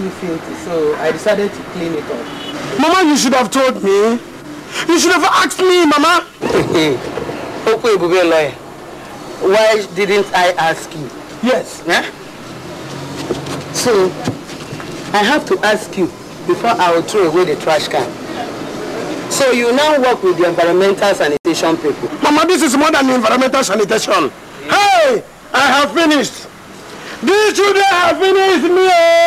little filthy, so I decided to clean it up. Mama, you should have told me. You should have asked me, Mama. Okay, Google lawyer. Why didn't I ask you? Yes. Yeah? So, I have to ask you before I will throw away the trash can. So you now work with the environmental sanitation people. Mama, this is more than environmental sanitation. Yeah. Hey, I have finished. These children have finished me. Oh.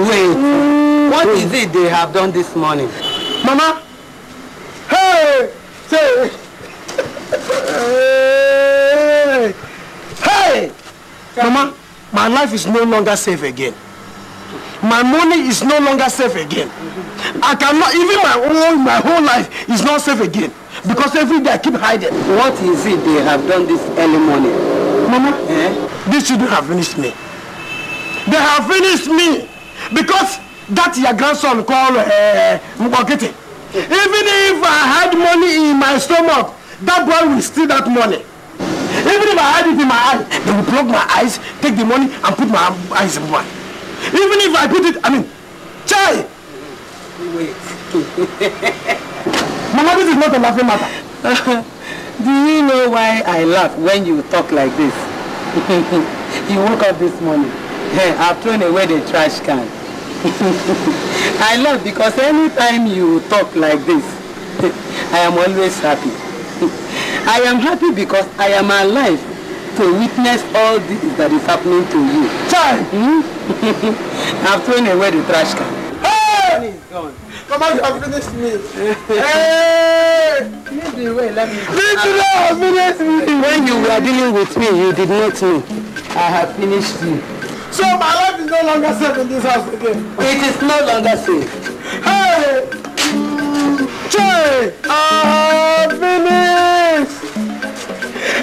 Wait. Mm. What Wait. is it they have done this morning? Mama. Hey! Say. hey! Hey! Mama, my life is no longer safe again. My money is no longer safe again. I cannot, even my own, my whole life is not safe again. Because every day I keep hiding. What is it they have done this early morning? Mama, eh? these children have finished me. They have finished me because that your grandson call uh, eh, Mbokete. Even if I had money in my stomach, that boy will steal that money. Even if I had it in my eye, they will plug my eyes, take the money, and put my eyes in one. Even if I put it, I mean, chai! Wait. Mama, this is not a laughing matter. Do you know why I laugh when you talk like this? you woke up this morning. I've thrown away the trash can. I love because anytime you talk like this, I am always happy. I am happy because I am alive to witness all this that is happening to you. Child! Hmm? I've thrown away the trash can. Hey! Gone. Come on, you have finished me. hey! Lead the away. let me. Lead the way, finish me. When you were dealing with me, you did not know. I have finished you. So my life is no longer safe in this house again. It is no longer safe. Hey! Che! I have finished!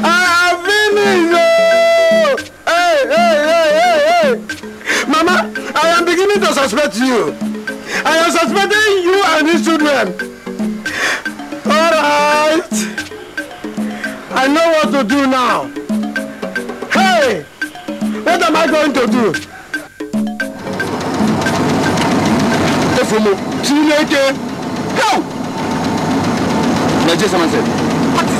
I have finished! Oh! Hey, hey, hey, hey, hey! Mama, I am beginning to suspect you. I am suspecting you and these children. Alright! I know what to do now. Hey! What am I going to do? Efumo, Chineke, go! Nigeria someone said.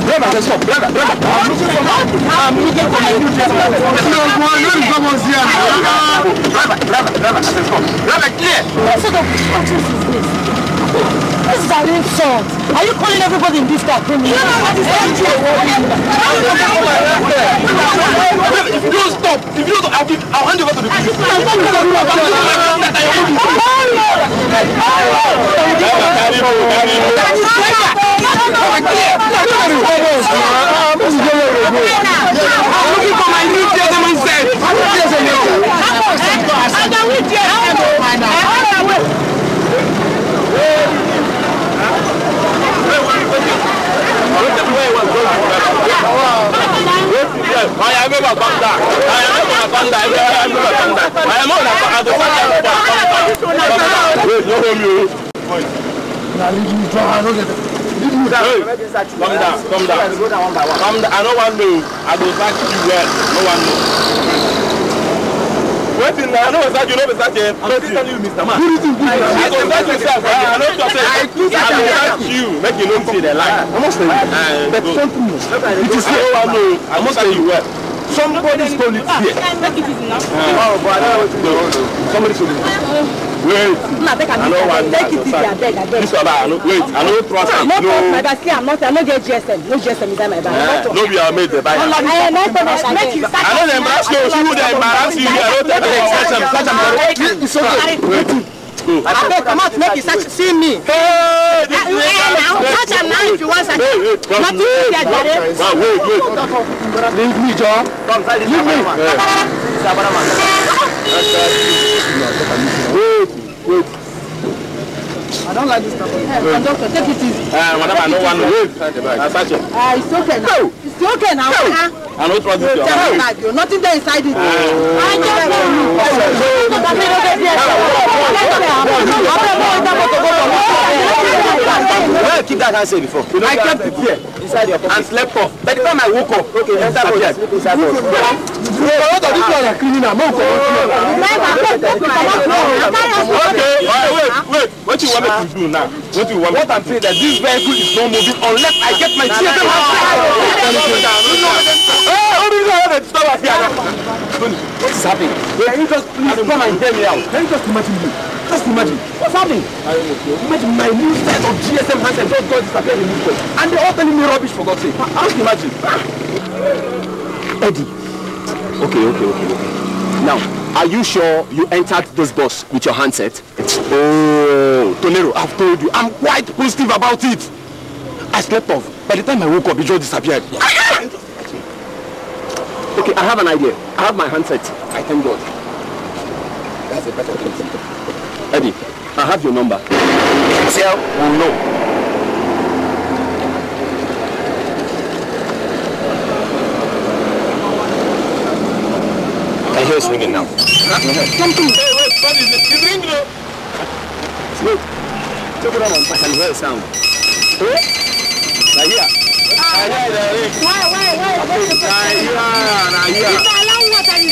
Brother, stop, brother, brother. I'm looking for you. I'm looking for help. you don't come on here. Brother, brother, brother, I said Brother, clear. What sort of nonsense is this? This is an insult. Are you calling everybody in this car criminal? You know what is happening? If you don't stop, if you don't stop, I'll, give, I'll hand over to the police. I'm not going to do that. I'm not going to do that. I am ever panda. I am ever panda. I am ever panda. I am on a panda. Wait, no home you. Come down, come down, come down. Come down. I know one know. I go back to you well. No one knows wetin na i no go start you no go start you i'm still telling you mr man i go start you sef i no talk say i go start you make you no see the line. i must tell you but something it is so i know i must tell you well. Somebody stole it here. Ah, oh, but I know what you do. Somebody stole it. Wait. Ah, no, take, I know Take it easy, I beg, I beg. This one, I know. Wait, I know trust ah, him. No, no my basket. I'm not. I'm not get GSM. No GSM inside my bag. Eh, no, we are made the buyer. I am not gonna make you. I know the embarrass you. She would embarrass you. I know the embarrass you. Catch him, catch him. It's okay. Wait. Mm. come out, make you see me. hey ah, this is now touch am now if you want search nothing dey there jare. wa wait wait leave me jọ leave me. wait wait. I don't like this type of hey, conductor. Take it easy. Uh, madam, I don't want to wave Uh, it's okay now. No. It's okay now. No. I don't trust this. You're bag. You're nothing there inside it. Uh, I don't know. Where keep that hand say before? I can't prepare inside your pocket. and slept off by the time I woke up okay enter pocket sleep inside your pocket. you for what of this one criminal you okay wait wait wait what you want me to do now what do you want me to do. what i'm saying that this vehicle is not moving unless i get my children What hey obinna how dey disturb us here. sabi can you just please come and hear me out. can you just imagine me. Just imagine. What's happening? Imagine my new set of GSM handset just got disappeared in this place. And they're all telling me rubbish for God's sake. Just imagine. Eddie. Okay, okay, okay, okay. Now, are you sure you entered this bus with your handset? Oh, Tonero, I've told you. I'm quite positive about it. I slept off. By the time I woke up, it just disappeared. okay, I have an idea. I have my handset. I thank God. That's a better thing. Eddie, I have your number. Tell will know. I hear it's ringing now. Come to me. Hey, wait, what is it? It's ringing now. Look, check it out. I can hear a sound. Hello? Right here. Ah, I hear the ring. Why, why, why? I hear,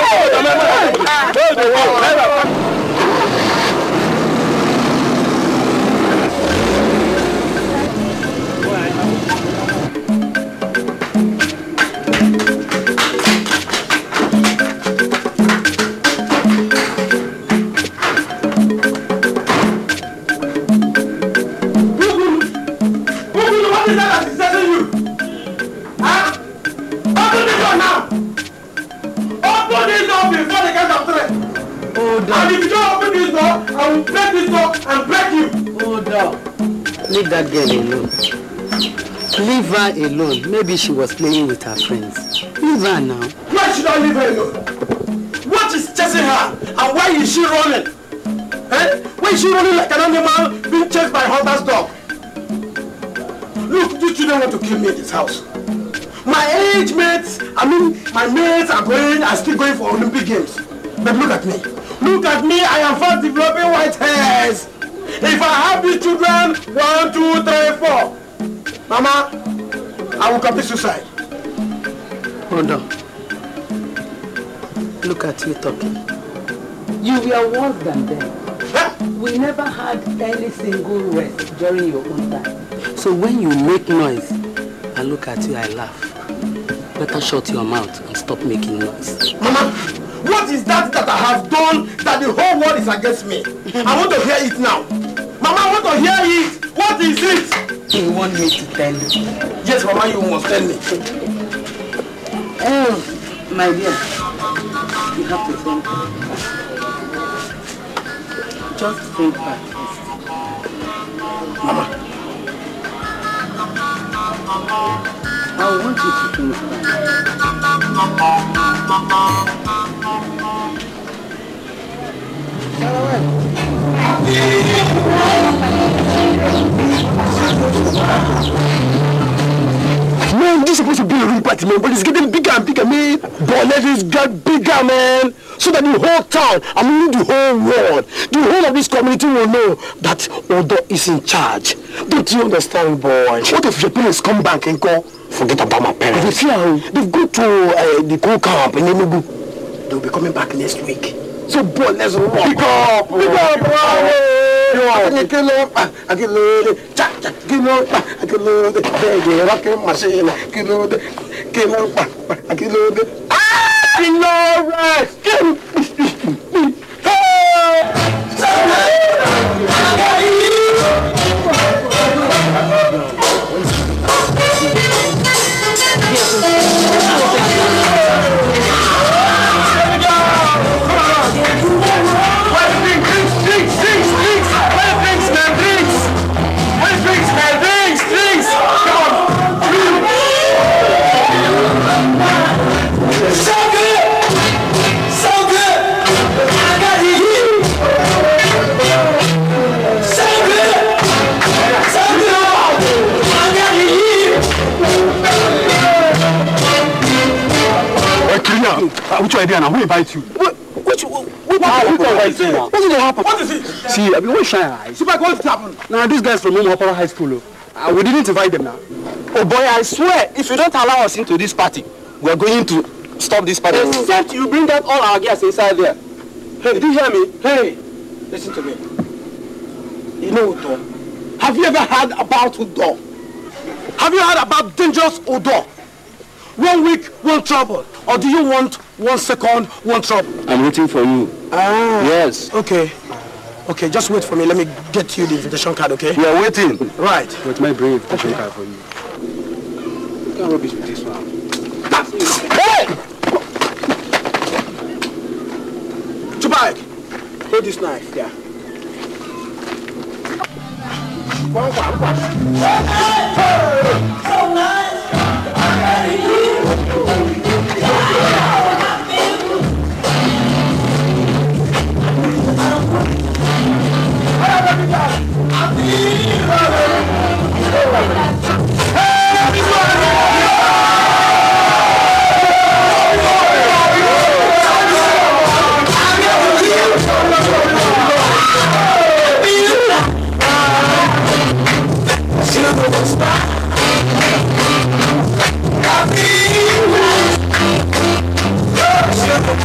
ọ̀rọ̀ ọ̀rọ̀ ọ̀rọ̀ ọ̀rọ̀ ọ̀rọ̀ Oh, down. And if you don't open this door, I will break this door and break you. Hold down. Leave that girl alone. Leave her alone. Maybe she was playing with her friends. Leave her now. Why should I leave her alone? What is chasing her? And why is she running? Eh? Why is she running like an animal being chased by hunter's dog? Look, you children want to kill me in this house. My age mates, I mean, my mates are going, are still going for Olympic Games. But look at me. Look at me, I am fast developing white hairs. If I have these children, one, two, three, four. Mama, I will commit suicide. Hold on. Look at you talking. You were worse than them. Huh? We never had any single rest during your own time. So when you make noise, I look at you, I laugh. Better shut your mouth and stop making noise. Mama! What is that that I have done that the whole world is against me? I want to hear it now. Mama, I want to hear it. What is it? You want me to tell you? Yes, Mama, you must tell me. Oh, my dear, you have to think back. Just think back Mama. I want you to think back. Man, this is supposed to be a rupert, man, but it's getting bigger and bigger, man. Boletis got bigger, man. So that the whole town, I mean the whole world, the whole of this community will know that Odo is in charge. Don't you understand, boy? What if your parents come back and go, forget about my parents? They fear, they've gone to uh, the coal camp in Enugu. They'll be coming back next week so bold let's walk. Pick up, pick up, bravo. Akilode, akilode, cha cha, akilode, akilode, ah, baby, rocking machine, akilode, akilode, akilode. Ah! Akilode. Ah! Hey! Yes. Uh, which idea now? Who invites you? What? Which? What, what, what, what, what, what, is it? What is it? See, I mean, what shine eyes? See, what happening? Now these guys from Mumopara High School. Oh, uh, we didn't invite them now. Oh boy, I swear, if you don't allow us into this party, we are going to stop this party. Except you bring that all our guests inside there. Hey, did you hear me? Hey, listen to me. You know Udo? Have you ever heard about Udo? Have you heard about dangerous Udo? one week, one trouble? Or do you want one second, one trouble? I'm waiting for you. Ah. Yes. Okay. Okay, just wait for me. Let me get you the invitation card, okay? We are waiting. Right. With my brave invitation okay. card for you. Don't rubbish with this one. Hey! Chubai! Hold this knife, yeah. Hey! Abriu!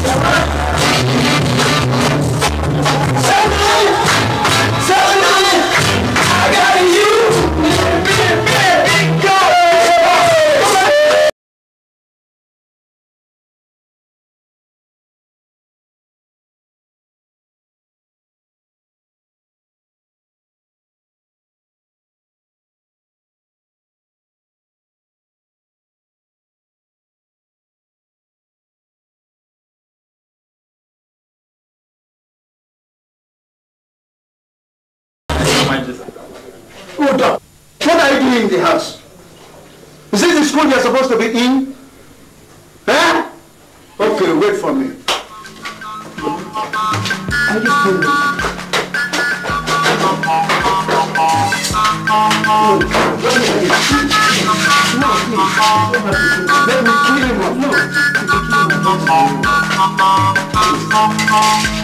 Thank What are you doing in the house? Is this the school you're supposed to be in? Huh? Okay, wait for me. No, let me kill him. No, Let me kill him. No.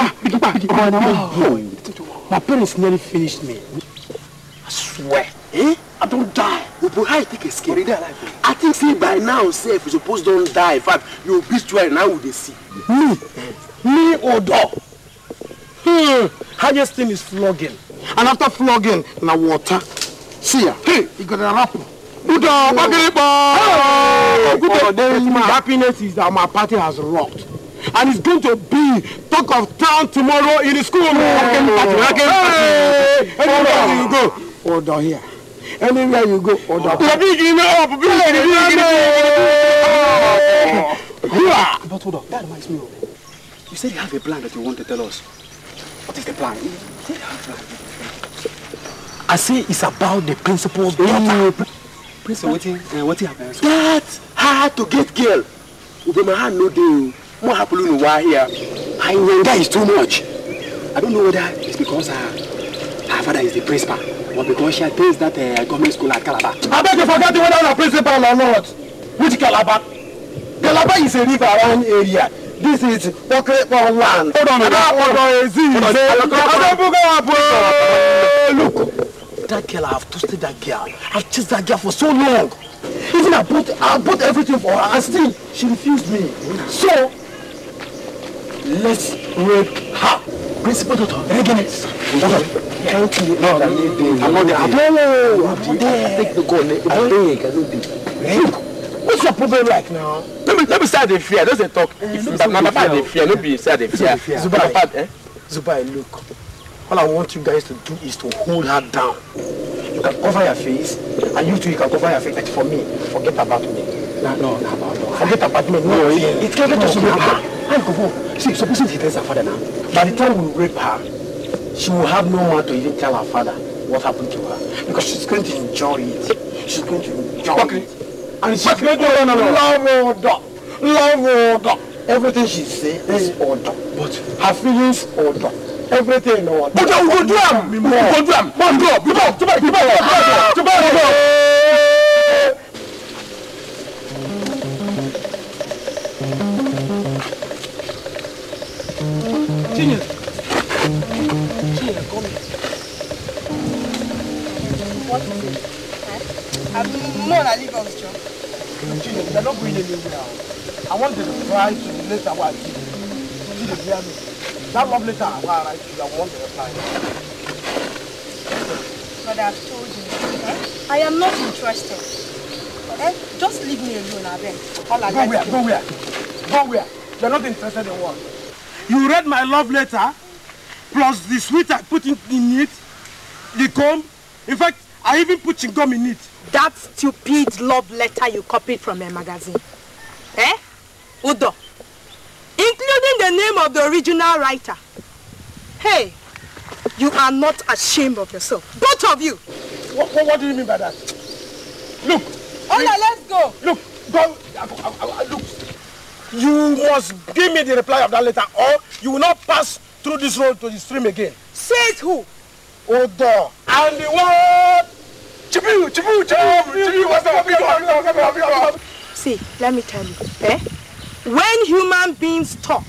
Oh, my parents nearly finished me. I swear. Eh? I don't die. But how you take escape? Already I think say by now, say if you suppose don't die, in fact, you obituary now would they see. Me? Me or dog? Hmm. Highest thing is flogging. And after flogging, now water. See ya. Hey, you got an apple. Buddha, Bagiripa! Oh, happiness is that my party has rocked and it's going to be talk of town tomorrow in the school. Anywhere you go, or down here. Anywhere you go, or down here. Big enough, big enough. But hold on, that reminds me of You said you have a plan that you want to tell us. What is the plan? I say it's about the principal's daughter. Mm. Principal, what, uh, happened? That hard to get girl. my hand, no deal. What more happening while here. I that is too much. I don't know whether it's because her, uh, her father is the principal or because she attends that uh, government school at Calabar. I beg you forget whether the principal or not. Which Calabar? Calabar is a river around area. This is Pokemon land. Hold on, hold on, hold on, Ezi. Look, that girl, I've toasted that girl. I've chased that girl for so long. Even I bought, I bought everything for her, and still she refused me. So let's rape her. Principal Doctor, Regenes. Can't you? No, I'm not there. I'm not there. No, I'm there. Take the gun. Eh? I'm big. I don't Look, What's your problem like now? Let me let me start the fear. Let's talk. Eh, my start the fear. No be start the fear. Zubai, eh? Zubai, look. All I want you guys to do is to hold her down. You can cover your face, and you too, you can cover your face. But for me, forget about me. No, no, no, no. Forget about me. No, no it, eh? it can't get to Zubai. Let go home. See, supposing she tells her father now, by the time we rape her, she will have no one to even tell her father what happened to her. Because she's going to enjoy it. She's going to enjoy okay. it. And she's going to no, no, love order. Love order. Everything she says is eh. order. But her feelings order. Everything order. But you go do them. You go do them. Go, go, go. Go, go, go. Go, go, go. and they're not going anywhere now. I want to try to the letter where I give you. See the hear me? That love letter I write to you, I want to reply. But I've told you, eh? I am not interested. Eh? Just leave me alone, Abel. All I go where? Go where? Go where? You're not interested in what? You read my love letter, plus the sweet I put in, in it, the comb. In fact, I even put chewing gum in it that stupid love letter you copied from a magazine. Eh? Udo. Including the name of the original writer. Hey, you are not ashamed of yourself. Both of you. What, what, what do you mean by that? Look. Ola, let's go. Look, go. look. You must give me the reply of that letter or you will not pass through this road to the stream again. Says who? Odo. And the word See, let me tell you, eh? When human beings talk,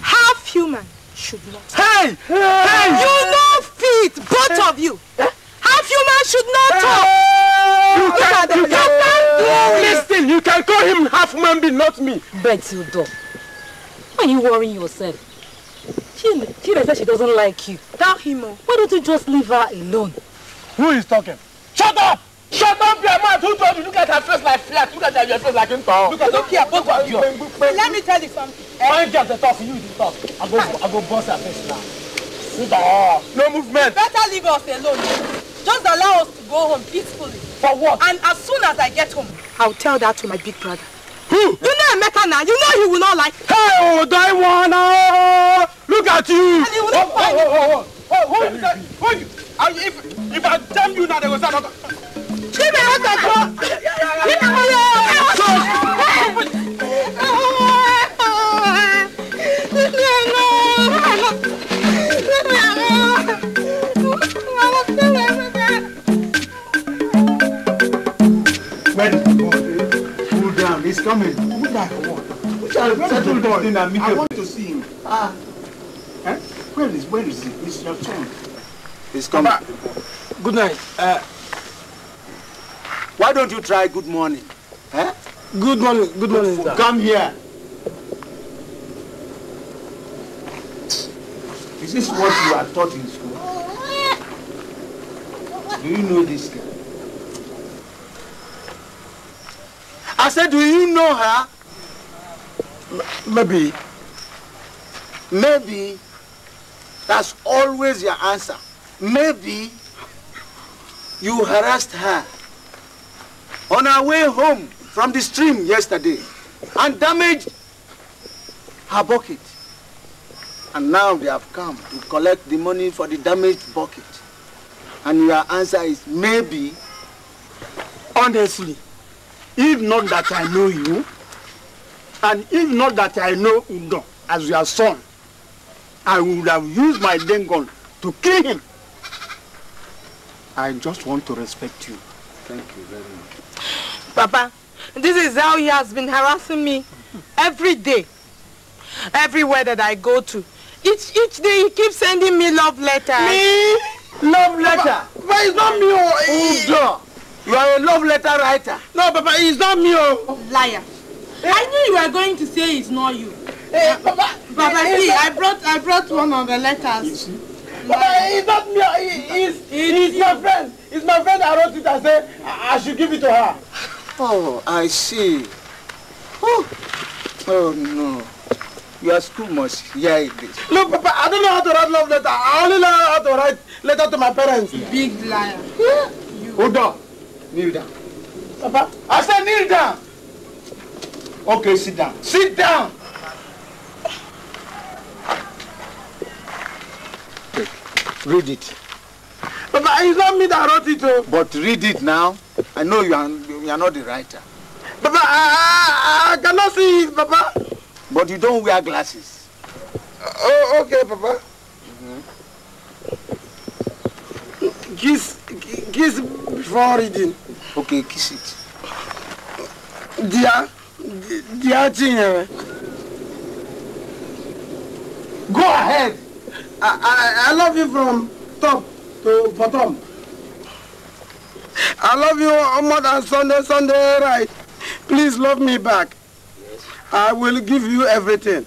half human should not. Hey! Hey! hey. You know feet, both of you. Half human should not talk. You can, you can You can, listen, you can call him half man, being, not me. you Why are you worrying yourself? She, she said she doesn't like you. Tell him. Why don't you just leave her alone? Who is talking? Shut up! Shut up, your mouth! Who told you? Look at her face like flat. Look at her, your face like in town. Look at her, care, both of you. Let me tell you something. One girl to talk, you to talk. I go, I go bust her face now. Sit down. No movement. better leave us alone. Just allow us to go home peacefully. For what? And as soon as I get home, I'll tell that to my big brother. Who? You know Emeka now. You know he will not like. Hey, oh, Diana! Look at you! And he will not oh, find oh, oh, oh, oh, oh, oh, oh, oh, oh, oh, oh, oh, oh, oh, oh, oh, If I damn you now, they will start not. Give me out that door. Leave me alone. Cool down, he's coming. Who that one? Which are settle down. I want to see him. Ah. Eh? Where is where is he? It's your turn. He's coming. Papa. Good night. Uh, why don't you try good morning? Huh? Eh? Good morning. Good morning. Good Come here. Is this what you are taught in school? Do you know this girl? I said, do you know her? maybe. Maybe. That's always your answer. Maybe. You harassed her on her way home from the stream yesterday and damaged her bucket. And now they have come to collect the money for the damaged bucket. And your answer is maybe. Honestly, if not that I know you, and if not that I know Udon as your son, I would have used my dengon to kill him. I just want to respect you. Thank you very much. Papa, this is how he has been harassing me every day, everywhere that I go to. Each, each day he keeps sending me love letters. Me? Love letter? Papa, but it's not me. Oh, Udo, oh, you are a love letter writer. No, Papa, it's not me. Oh. Liar. Eh? I knew you were going to say it's not you. Hey, eh, Papa, Papa, eh, see, eh. I brought, I brought one of the letters. But it's uh, not me. It's, uh, it's my friend. It's my friend I wrote it I said I should give it to her. Oh, I see. Oh, oh no. Your school must hear yeah, this. Look, Papa, I don't know how to write love letter. I only know how to write letter to my parents. Big liar. Yeah. You. Hold on. Kneel down. Papa? I said kneel down. Okay, sit down. Sit down. Read it. Papa. it's not me that wrote it. Oh. But read it now. I know you are, you are not the writer. Papa. I, I, I cannot see it, Baba. But you don't wear glasses. Uh, oh, okay, Papa. Mm-hmm. Kiss, kiss before reading. Okay, kiss it. Dear, dear Chinyere. Go ahead. I, I, love you from top to bottom. I love you more than Sunday, Sunday, right? Please love me back. Yes. I will give you everything.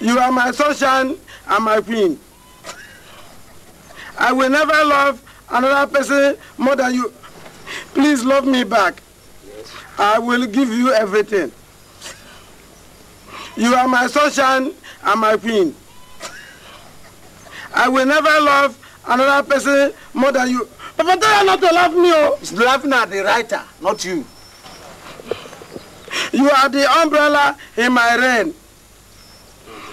You are my sunshine and my queen. I will never love another person more than you. Please love me back. Yes. I will give you everything. You are my sunshine and my queen. I will never love another person more than you. Papa, tell her not to love me, oh. She's laughing at the writer, not you. You are the umbrella in my rain,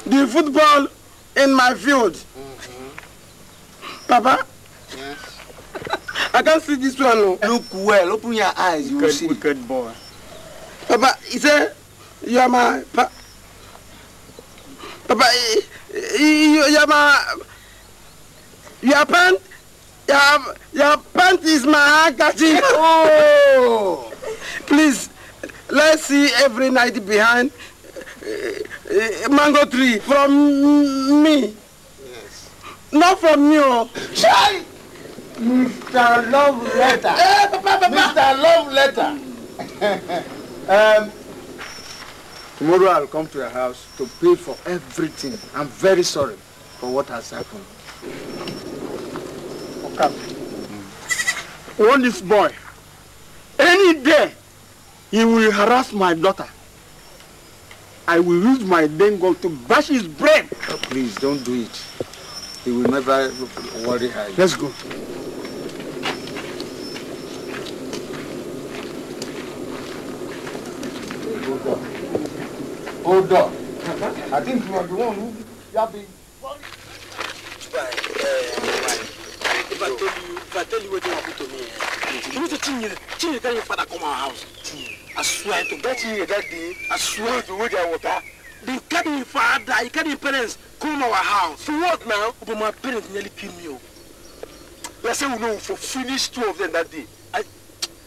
the football in my field. Mm-hmm. Papa? Yes? I can't see this one, no. Oh. Look well, open your eyes, you wicked, will see. Good boy. Papa, he said, you are my... Pa Papa, you are my... Your pant, your, your pant is my handkerchief. Oh, please, let's see every night behind uh, mango tree from me. Yes. Not from you. Shy. Mr. Love Letter. Hey, eh, papa, papa. Mr. Love Letter. um, tomorrow I'll come to your house to pay for everything. I'm very sorry for what has happened. camp. Warn this boy. Any day, he will harass my daughter. I will use my dengue to bash his brain. Oh, please, don't do it. He will never worry her. Let's go. Hold up. I think you are the one who... You have been... I tell you what you want to me. You need to change it. Change it. your father come our house. I swear to that that day. I swear to water. They carry your father. You your parents. Come our house. For what now? But my parents nearly killed me. Let's oh. say we know for finish two of them that day.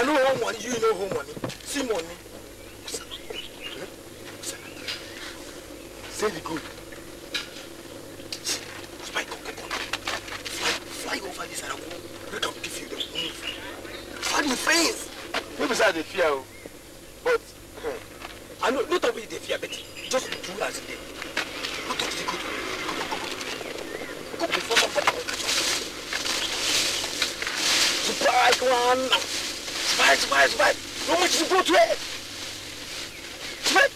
I know home money, you know home money. See money. Say the good. Spy pocket money. Fly, over this and I will break up give you the money. Fly the face. Maybe it's the fear, but hmm. I know not only the fear, but just do as it is. Go to the good. Go before Surprise one. Smart, smart, smart. No much to go to it. Smart.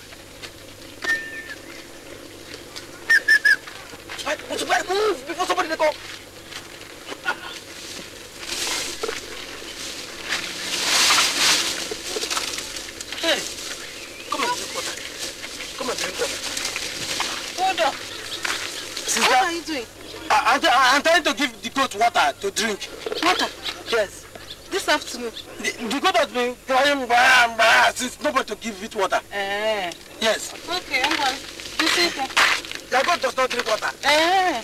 Smart, what's move before somebody to go? Hey, come and drink water. Come and drink water. Hold up. what are you doing? I, i I'm trying to give the goat water to drink. Water? Yes. this afternoon. The, the goat has been crying since nobody to give it water. Eh. Yes. Okay, I'm going. This is. Your goat does not drink water. Eh.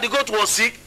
that the goat was sick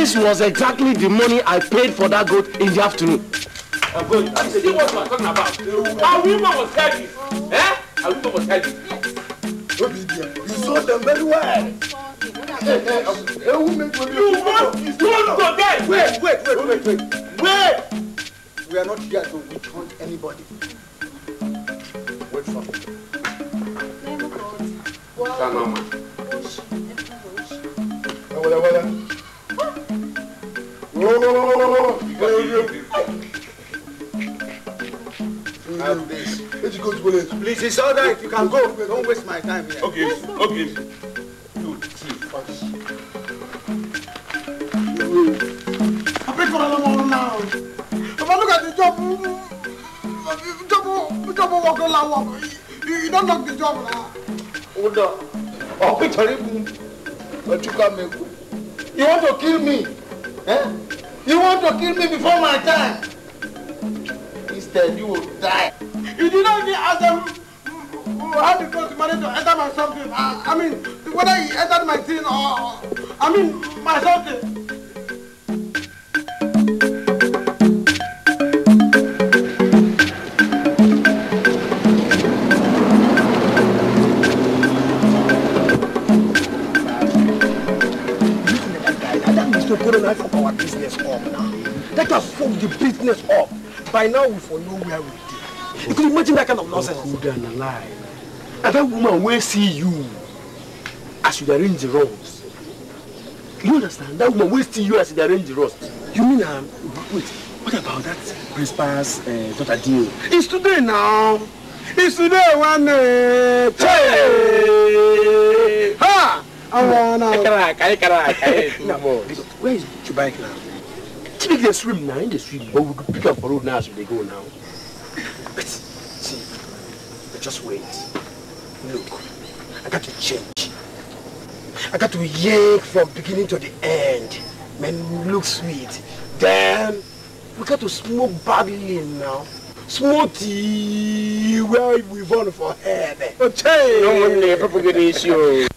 This was exactly the money I paid for that goat in the afternoon. Uh, but, uh, see what you are talking about. Our woman was heavy. Eh? Our woman was heavy. You saw them very well. Hey, hey, um, hey, woman, you want to go there? Wait, wait, wait, wait, wait. Wait! We are not here to withhold anybody. Wait for me. Well, well, well. Have this. Let's go to police. Please, it's all right. You can go. Don't waste my time here. Okay, okay. Two, three, first. I pray for another one now. If I look at the job, job, job work all I work. You don't knock the job now. Oda, on. Oh, it's horrible. But you can't make it. You want to kill me? Eh? You want to kill me before my time? Instead, you will die. You did not even ask them how the God managed to enter my something. I, I mean, whether he entered my thing or, I mean, my something. life of our business up now. Let us fuck the business up. By now, we for where we it. You can imagine that kind of nonsense. Oh, good and alive. And that woman will see you as you arrange the roads. You understand? That woman will see you as you arrange the roads. You mean, um, wait, what about that principal's uh, daughter deal? It's today now. It's today one day. Hey! Ha! I wanna... Where is your bike now? Typically they swim now, in the swim, but we could pick up for road now as so they go now. But see, just wait. Look, I got to change. I got to yank from beginning to the end. Man, look sweet. Then we got to smoke Babylon now. Smoky, where we run for head. Okay. No money, there, Papa Ganesio.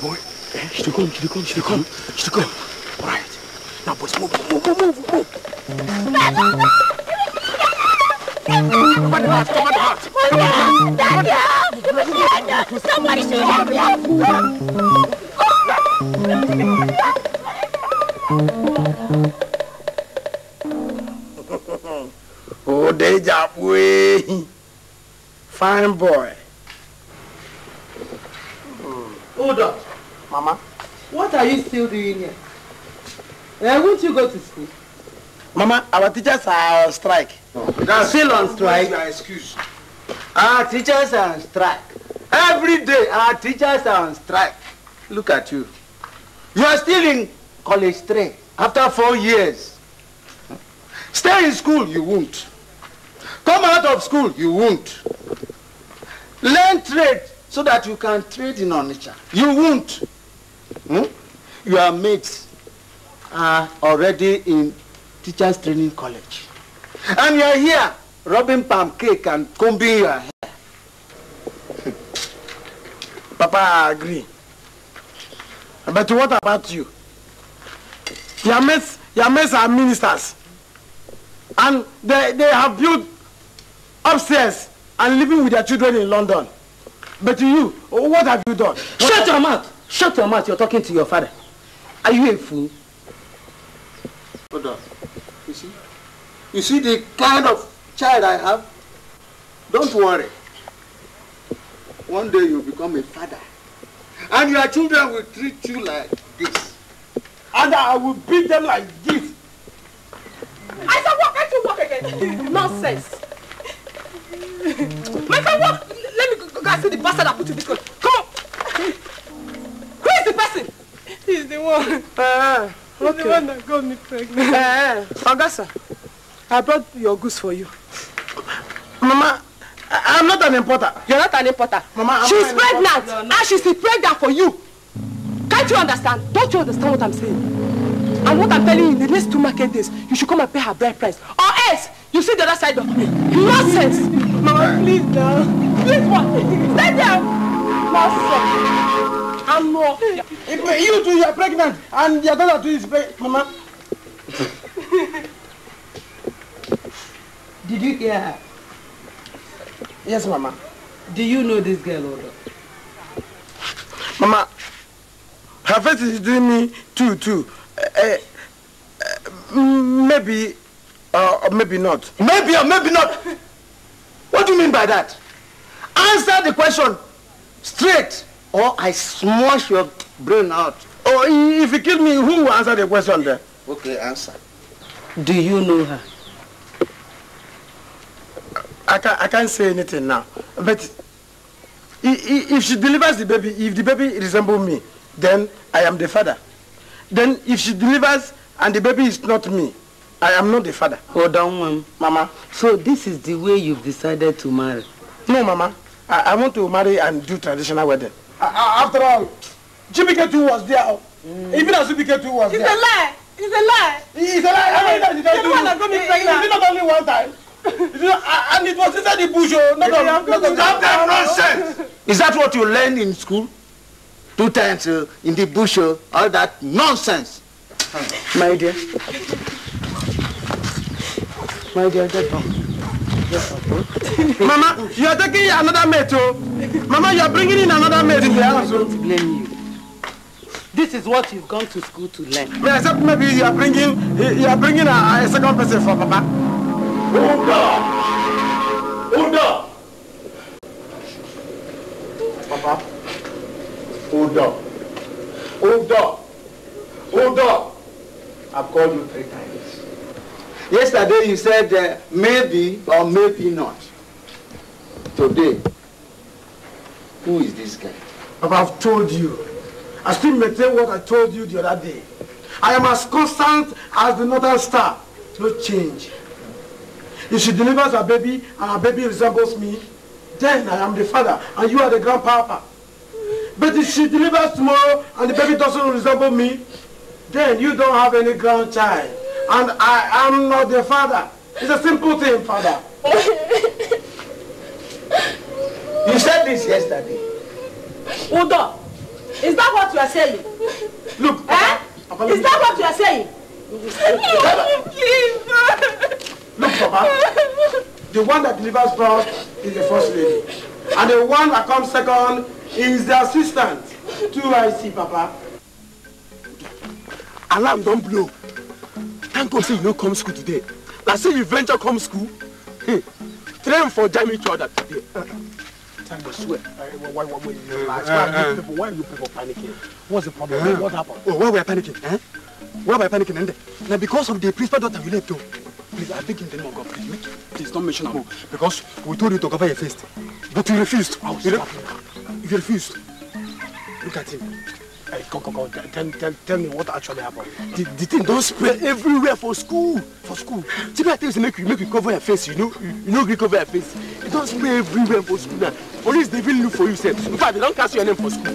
Boy, eh, she I come, she come, she come, she come? All right. Now, boys, move, move, move, move, move. What about, what about? Daniel! Somebody Oh, deja boy. Fine boy. Hold up. Mama? What are you still doing here? Uh, won't you go to school? Mama, our teachers are on strike. No, oh, still on strike. Your excuse. Our teachers are on strike. Every day, our teachers are on strike. Look at you. You are still in college three after four years. Stay in school, you won't. Come out of school, you won't. Learn trade so that you can trade in nature. You won't. Hmm? You are mates are already in teachers training college. And you're here rubbing palm cake and combing your hair. Papa, I agree. But what about you? Your mates, your mates are ministers. And they, they have built upstairs and living with their children in London. But you, what have you done? Shut your mouth! Shut your mouth, you're talking to your father. Are you a fool? Hold on. You see? You see the kind of child I have? Don't worry. One day you'll become a father. And your children will treat you like this. And I will beat them like this. I said, walk, I should walk again. Nonsense. My friend, walk. Let me go and see the bastard I put you this coat. Come on. Who is the person? He's the one. Uh Only okay. one got me pregnant. Uh, eh, eh, Augusta, I brought your goose for you. Mama, I I'm not an importer. You're not an importer. Mama, I'm she's pregnant, and ah, she's pregnant for you. Can't you understand? Don't you understand what I'm saying? And what I'm telling you, in the next two market days, you should come and pay her bride price. Or else, you see the other side of me. Nonsense! Mama, please now. Please, what? Stay there! Nonsense! I'm not. You two, you are pregnant, and your daughter too is pregnant, Mama. Did you hear her? Yes, Mama. Do you know this girl, Odo? Mama, her face is doing me too, too. Uh, uh, maybe, uh, or maybe not. Maybe or maybe not. What do you mean by that? Answer the question straight or I smash your brain out. Or if you kill me, who will answer the question then? Okay, answer. Do you know her? I can't, I can't say anything now. But if she delivers the baby, if the baby resembles me, then I am the father. Then if she delivers and the baby is not me, I am not the father. Hold on, um, Mama. So this is the way you've decided to marry? No, Mama. I, I want to marry and do traditional wedding after all chibike was there mm. even as chibike was there. it's a lie it's a lie. it's a lie every time she tell you it's not only one time. and it was inside the bush oh not on not that nonsense. is that what you learn in school two times uh, in the bush uh, all that nonsense. my dear my dear get down. Mama, you are taking another mate, oh. Mama, you are bringing in another mate in the house. I oh. don't blame you. This is what you've gone to school to learn. May except maybe you are bringing you are bringing a, a second person for Papa. Unda, Unda, Papa, Unda, Unda, Unda. I've called you three times. Yesterday you said uh, maybe or maybe not. Today, who is this guy? But I've told you. I still maintain what I told you the other day. I am as constant as the northern star. No change. If she delivers her baby and her baby resembles me, then I am the father and you are the grandpapa. But if she delivers tomorrow and the baby doesn't resemble me, then you don't have any grandchild. And I am not your father. It's a simple thing, father. you said this yesterday. Udo, is that what you are saying? Look. Eh? is that what you are saying? Please. Look, Papa. The one that delivers first is the first lady. And the one that comes second is the assistant. Two I see, Papa. Alarm, don't blow. Thank God say you don't come school today. Now say you venture come school. Hey, hmm. Train for jamming each other today. Uh-uh. Thank God, swear. Why, why, why, why, people, why are you people panicking? What's the problem? Uh, what happened? Oh, why we are panicking? Eh? Why we are panicking? And eh? now because of the principal daughter you left, though. Please, I think in the name of God, please, make, please don't mention her. Because we told you to cover your face. But you refused. Oh, you refused. Look at him come, come, come, tell, tell, tell me what actually happened. The, the thing don't spread everywhere for school. For school. Tibi, I tell you, make you, make you cover your face. You know, you, know, you cover your face. It don't spread everywhere for school now. Police, they will look for you, sir. In fact, they don't cast your name for school.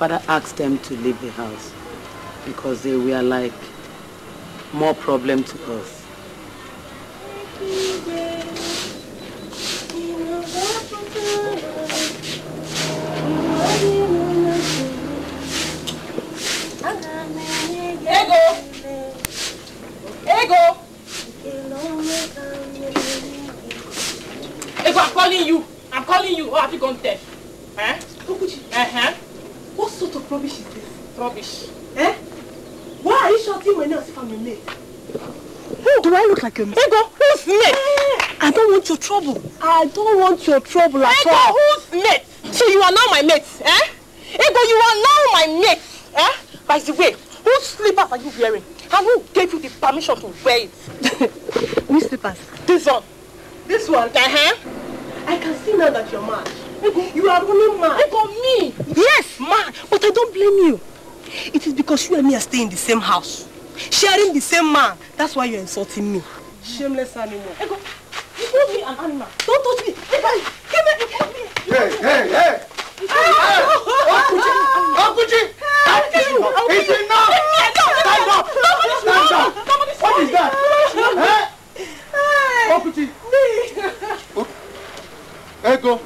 father asked them to leave the house because they were like more problem to us. Ego, I'm calling you. I'm calling you. Oh, have you gone deaf? Mimi. Do I look like a mistake? Ego, who's mate? Eh, eh. I don't want your trouble. I don't want your trouble at Ego, all. who's mate? So you are now my mate, eh? Ego, you are now my mate, eh? By the way, whose slippers are you wearing? And who gave you the permission to wear it? Which slippers? This one. This one? Uh-huh. I can see now that you're mad. Ego, you are really mad. Ego, me? Yes, mad. But I don't blame you. It is because you and me are staying in the same house sharing the same man. That's why you're insulting me. Shameless animal. Ego, you call me an animal. Don't touch me. Ego, give me, you call me. Hey, hey, hey. Okuchi! Ah! Ah! Okuchi! It's enough! Stand up! Stand up! What is that? Eh? Okuchi! Ego,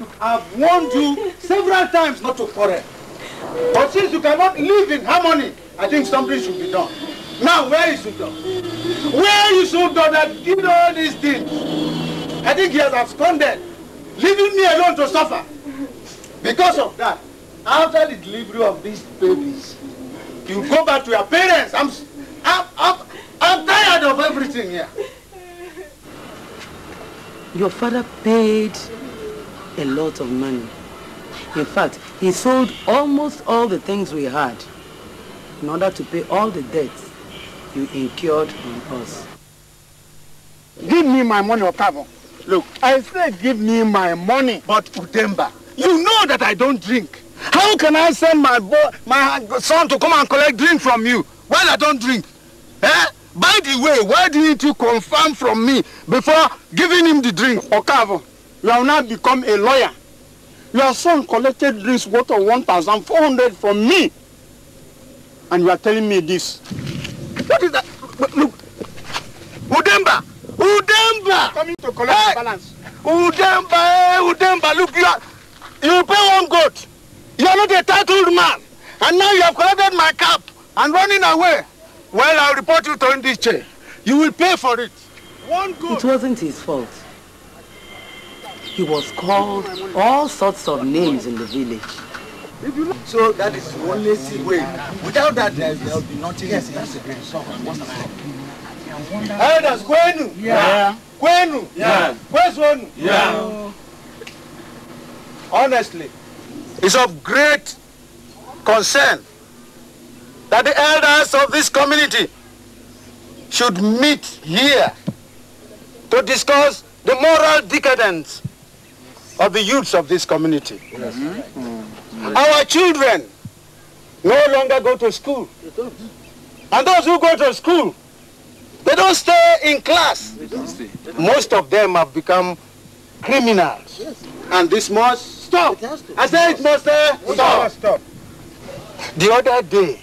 look, I've warned you several times not to quarrel. But since you cannot live in harmony, I think something should be done. Now, where is Udo? Where is Udo that did all these things? I think he has absconded, leaving me alone to suffer. Because of that, after the delivery of these babies, you go back to your parents. I'm, I'm, I'm, I'm tired of everything here. Your father paid a lot of money In fact, he sold almost all the things we had in order to pay all the debts you incurred on us. Give me my money, Okavo. Look, I said give me my money. But Udemba, you know that I don't drink. How can I send my boy, my son to come and collect drink from you while I don't drink? Eh? By the way, why didn't you confirm from me before giving him the drink? Okavo, you have now become a lawyer. Your son collected drinks worth of 1,400 from me. And you are telling me this. What is that? Look. Udemba! Udemba! Coming to collect hey. balance. Udemba, hey, eh, Udemba, look, you are, you pay one goat. You are not a titled man. And now you have collected my cap and running away. Well, I'll report you to this chair. You will pay for it. One goat. It wasn't his fault. He was called all sorts of names in the village. So that is the only way. Without that, there will be nothing. Yes, that's a great song. Elders, Gwenu? Yeah. Gwenu? Yeah. Kwesonu! Yeah. Honestly, it's of great concern that the elders of this community should meet here to discuss the moral decadence of the youths of this community. Yes. Mm -hmm. Our children no longer go to school. And those who go to school, they don't stay in class. Most of them have become criminals. Yes. And this must stop. I say it must uh, stop. stop. The other day,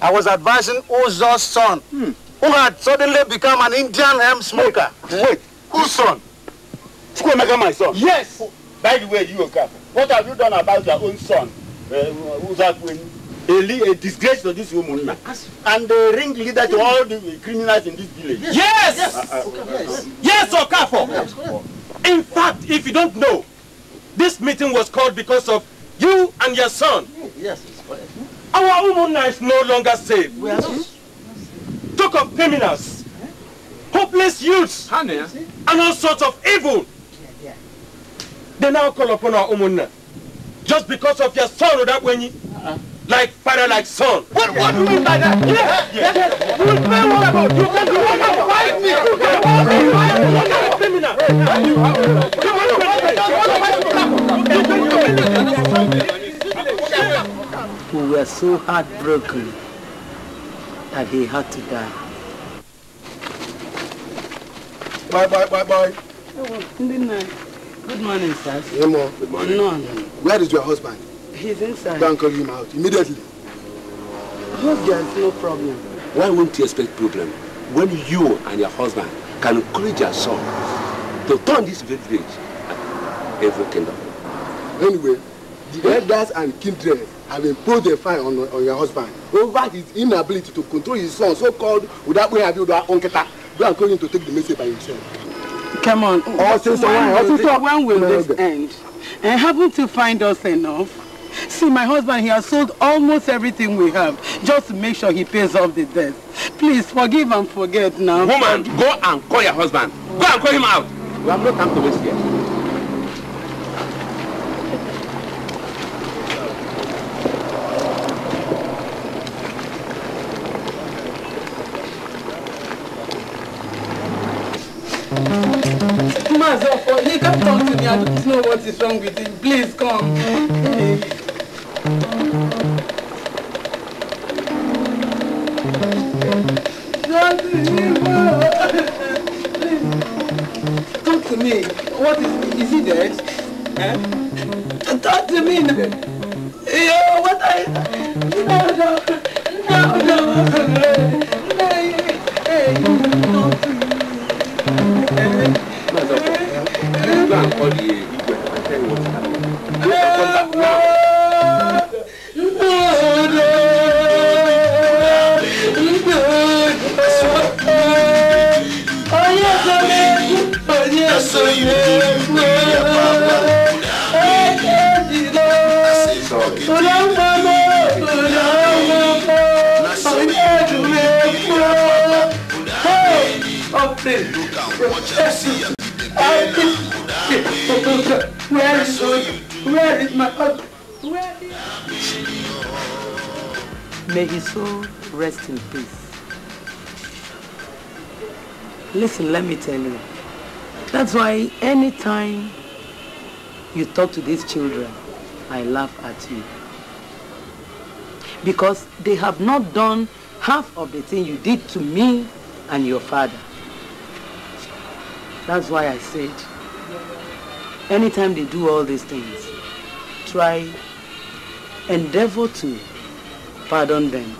I was advising Uzo's son, hmm. who had suddenly become an Indian hemp smoker. Wait, Wait. Uzo's son? Chukwemeka, my son. Yes. Oh, by the way, you Okafor, what have you done about your own son, uh, Uzakweni? A, a disgrace to this woman now. And the ring leader to all the criminals in this village. Yes! Yes, uh uh, uh, uh, uh, yes. yes Okafor! Yes. In fact, if you don't know, this meeting was called because of you and your son. Yes, it's Our woman is no longer safe. We are not. Hmm? Talk of criminals, hopeless youths, and all sorts of evil They now call upon our umunna. Just because of your sorrow that when you... Uh-uh. Like father, like son. What, what do you mean by that? Yes, yes. You will play what about? You can do what about? Fight me. You can hold me. You are not a criminal. You are a criminal. We were so heartbroken that he had to die. Bye, bye, bye, bye. Oh, good Good morning, sir. Hey, mom. Good morning. No, no. Where is your husband? He's inside. Go and call him out immediately. I hope there's no problem. Why won't you expect problem when you and your husband can encourage your son to turn this village every kingdom? Anyway, the hmm? elders and kindred have imposed a fine on, on your husband over his inability to control his son so-called without way have you that onketa go and call him to take the message by himself. Come on. Oh, sister, when, when, will, sister. This, when will this end? And happen to find us enough? See, my husband, he has sold almost everything we have just to make sure he pays off the debt. Please, forgive and forget now. Woman, go and call your husband. Go and call him out. We have no time to waste here. me. I don't know what is wrong with him. Please come. Please. Talk to me. What is is he dead? Eh? Talk to me. Yo, what I no no no no no. no. Hey. all the igwe i tell you what happened no no no no onye sọrọ egwu onye sọrọ egwu onye jide ụlọ mgbama ụlọ mgbama onye jụrụ Africa, where is, where is my husband? Where is May his soul rest in peace. Listen, let me tell you. That's why anytime you talk to these children, I laugh at you. Because they have not done half of the thing you did to me and your father. That's why I said Anytime they do all these things, try, endeavor to pardon them.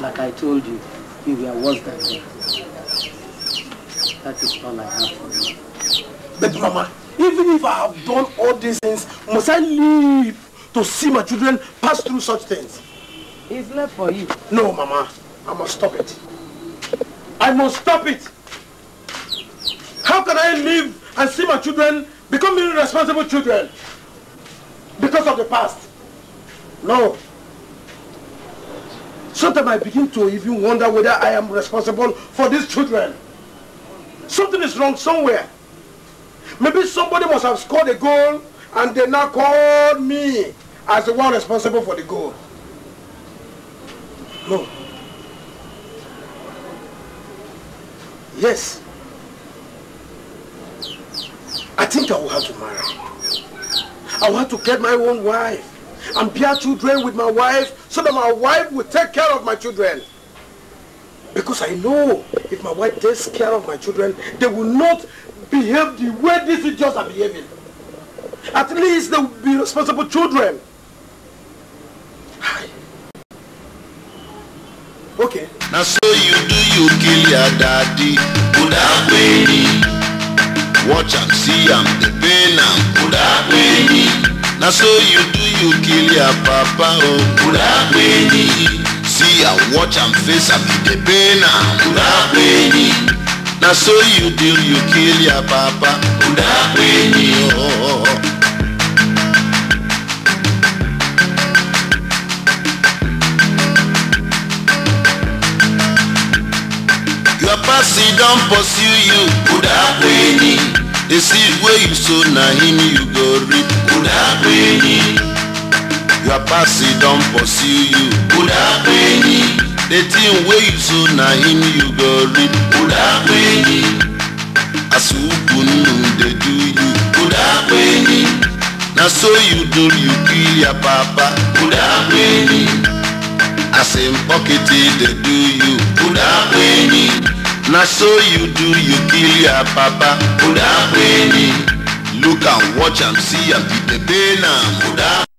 Like I told you, you were worse than them. That is all I have for you. But Mama, even if I have done all these things, must I live to see my children pass through such things? It's left for you. No, Mama. I must stop it. I must stop it. How can I live and see my children becoming responsible children because of the past. No. Sometimes I begin to even wonder whether I am responsible for these children. Something is wrong somewhere. Maybe somebody must have scored a goal and they now call me as the one responsible for the goal. No. Yes. I think I will have to marry. I will have to get my own wife and bear children with my wife so that my wife will take care of my children. Because I know if my wife takes care of my children, they will not behave the way these idiots are behaving. At least they will be responsible children. Hi. Okay. Now so you do you kill your daddy. Good watch am see am dey pain am kódà pé ní. na so you do you kill your papa o oh. kódà pé ní. see am watch am face am you dey pain am kódà pé ní. na so you do you kill your papa kódà pé ní. Oh, oh, oh. see don pursue you kuda kwenyi the seed wey you sow na him you go reap kuda kwenyi your past don pursue you kuda kwenyi the thing wey you sow na him you go reap kuda kwenyi as ukwu dey do you kuda kwenyi na so you do you kill your papa kuda kwenyi as him pocket dey do you kuda kwenyi na so you do you kill your papa uda pe ni look and watch am see am the pain am uda.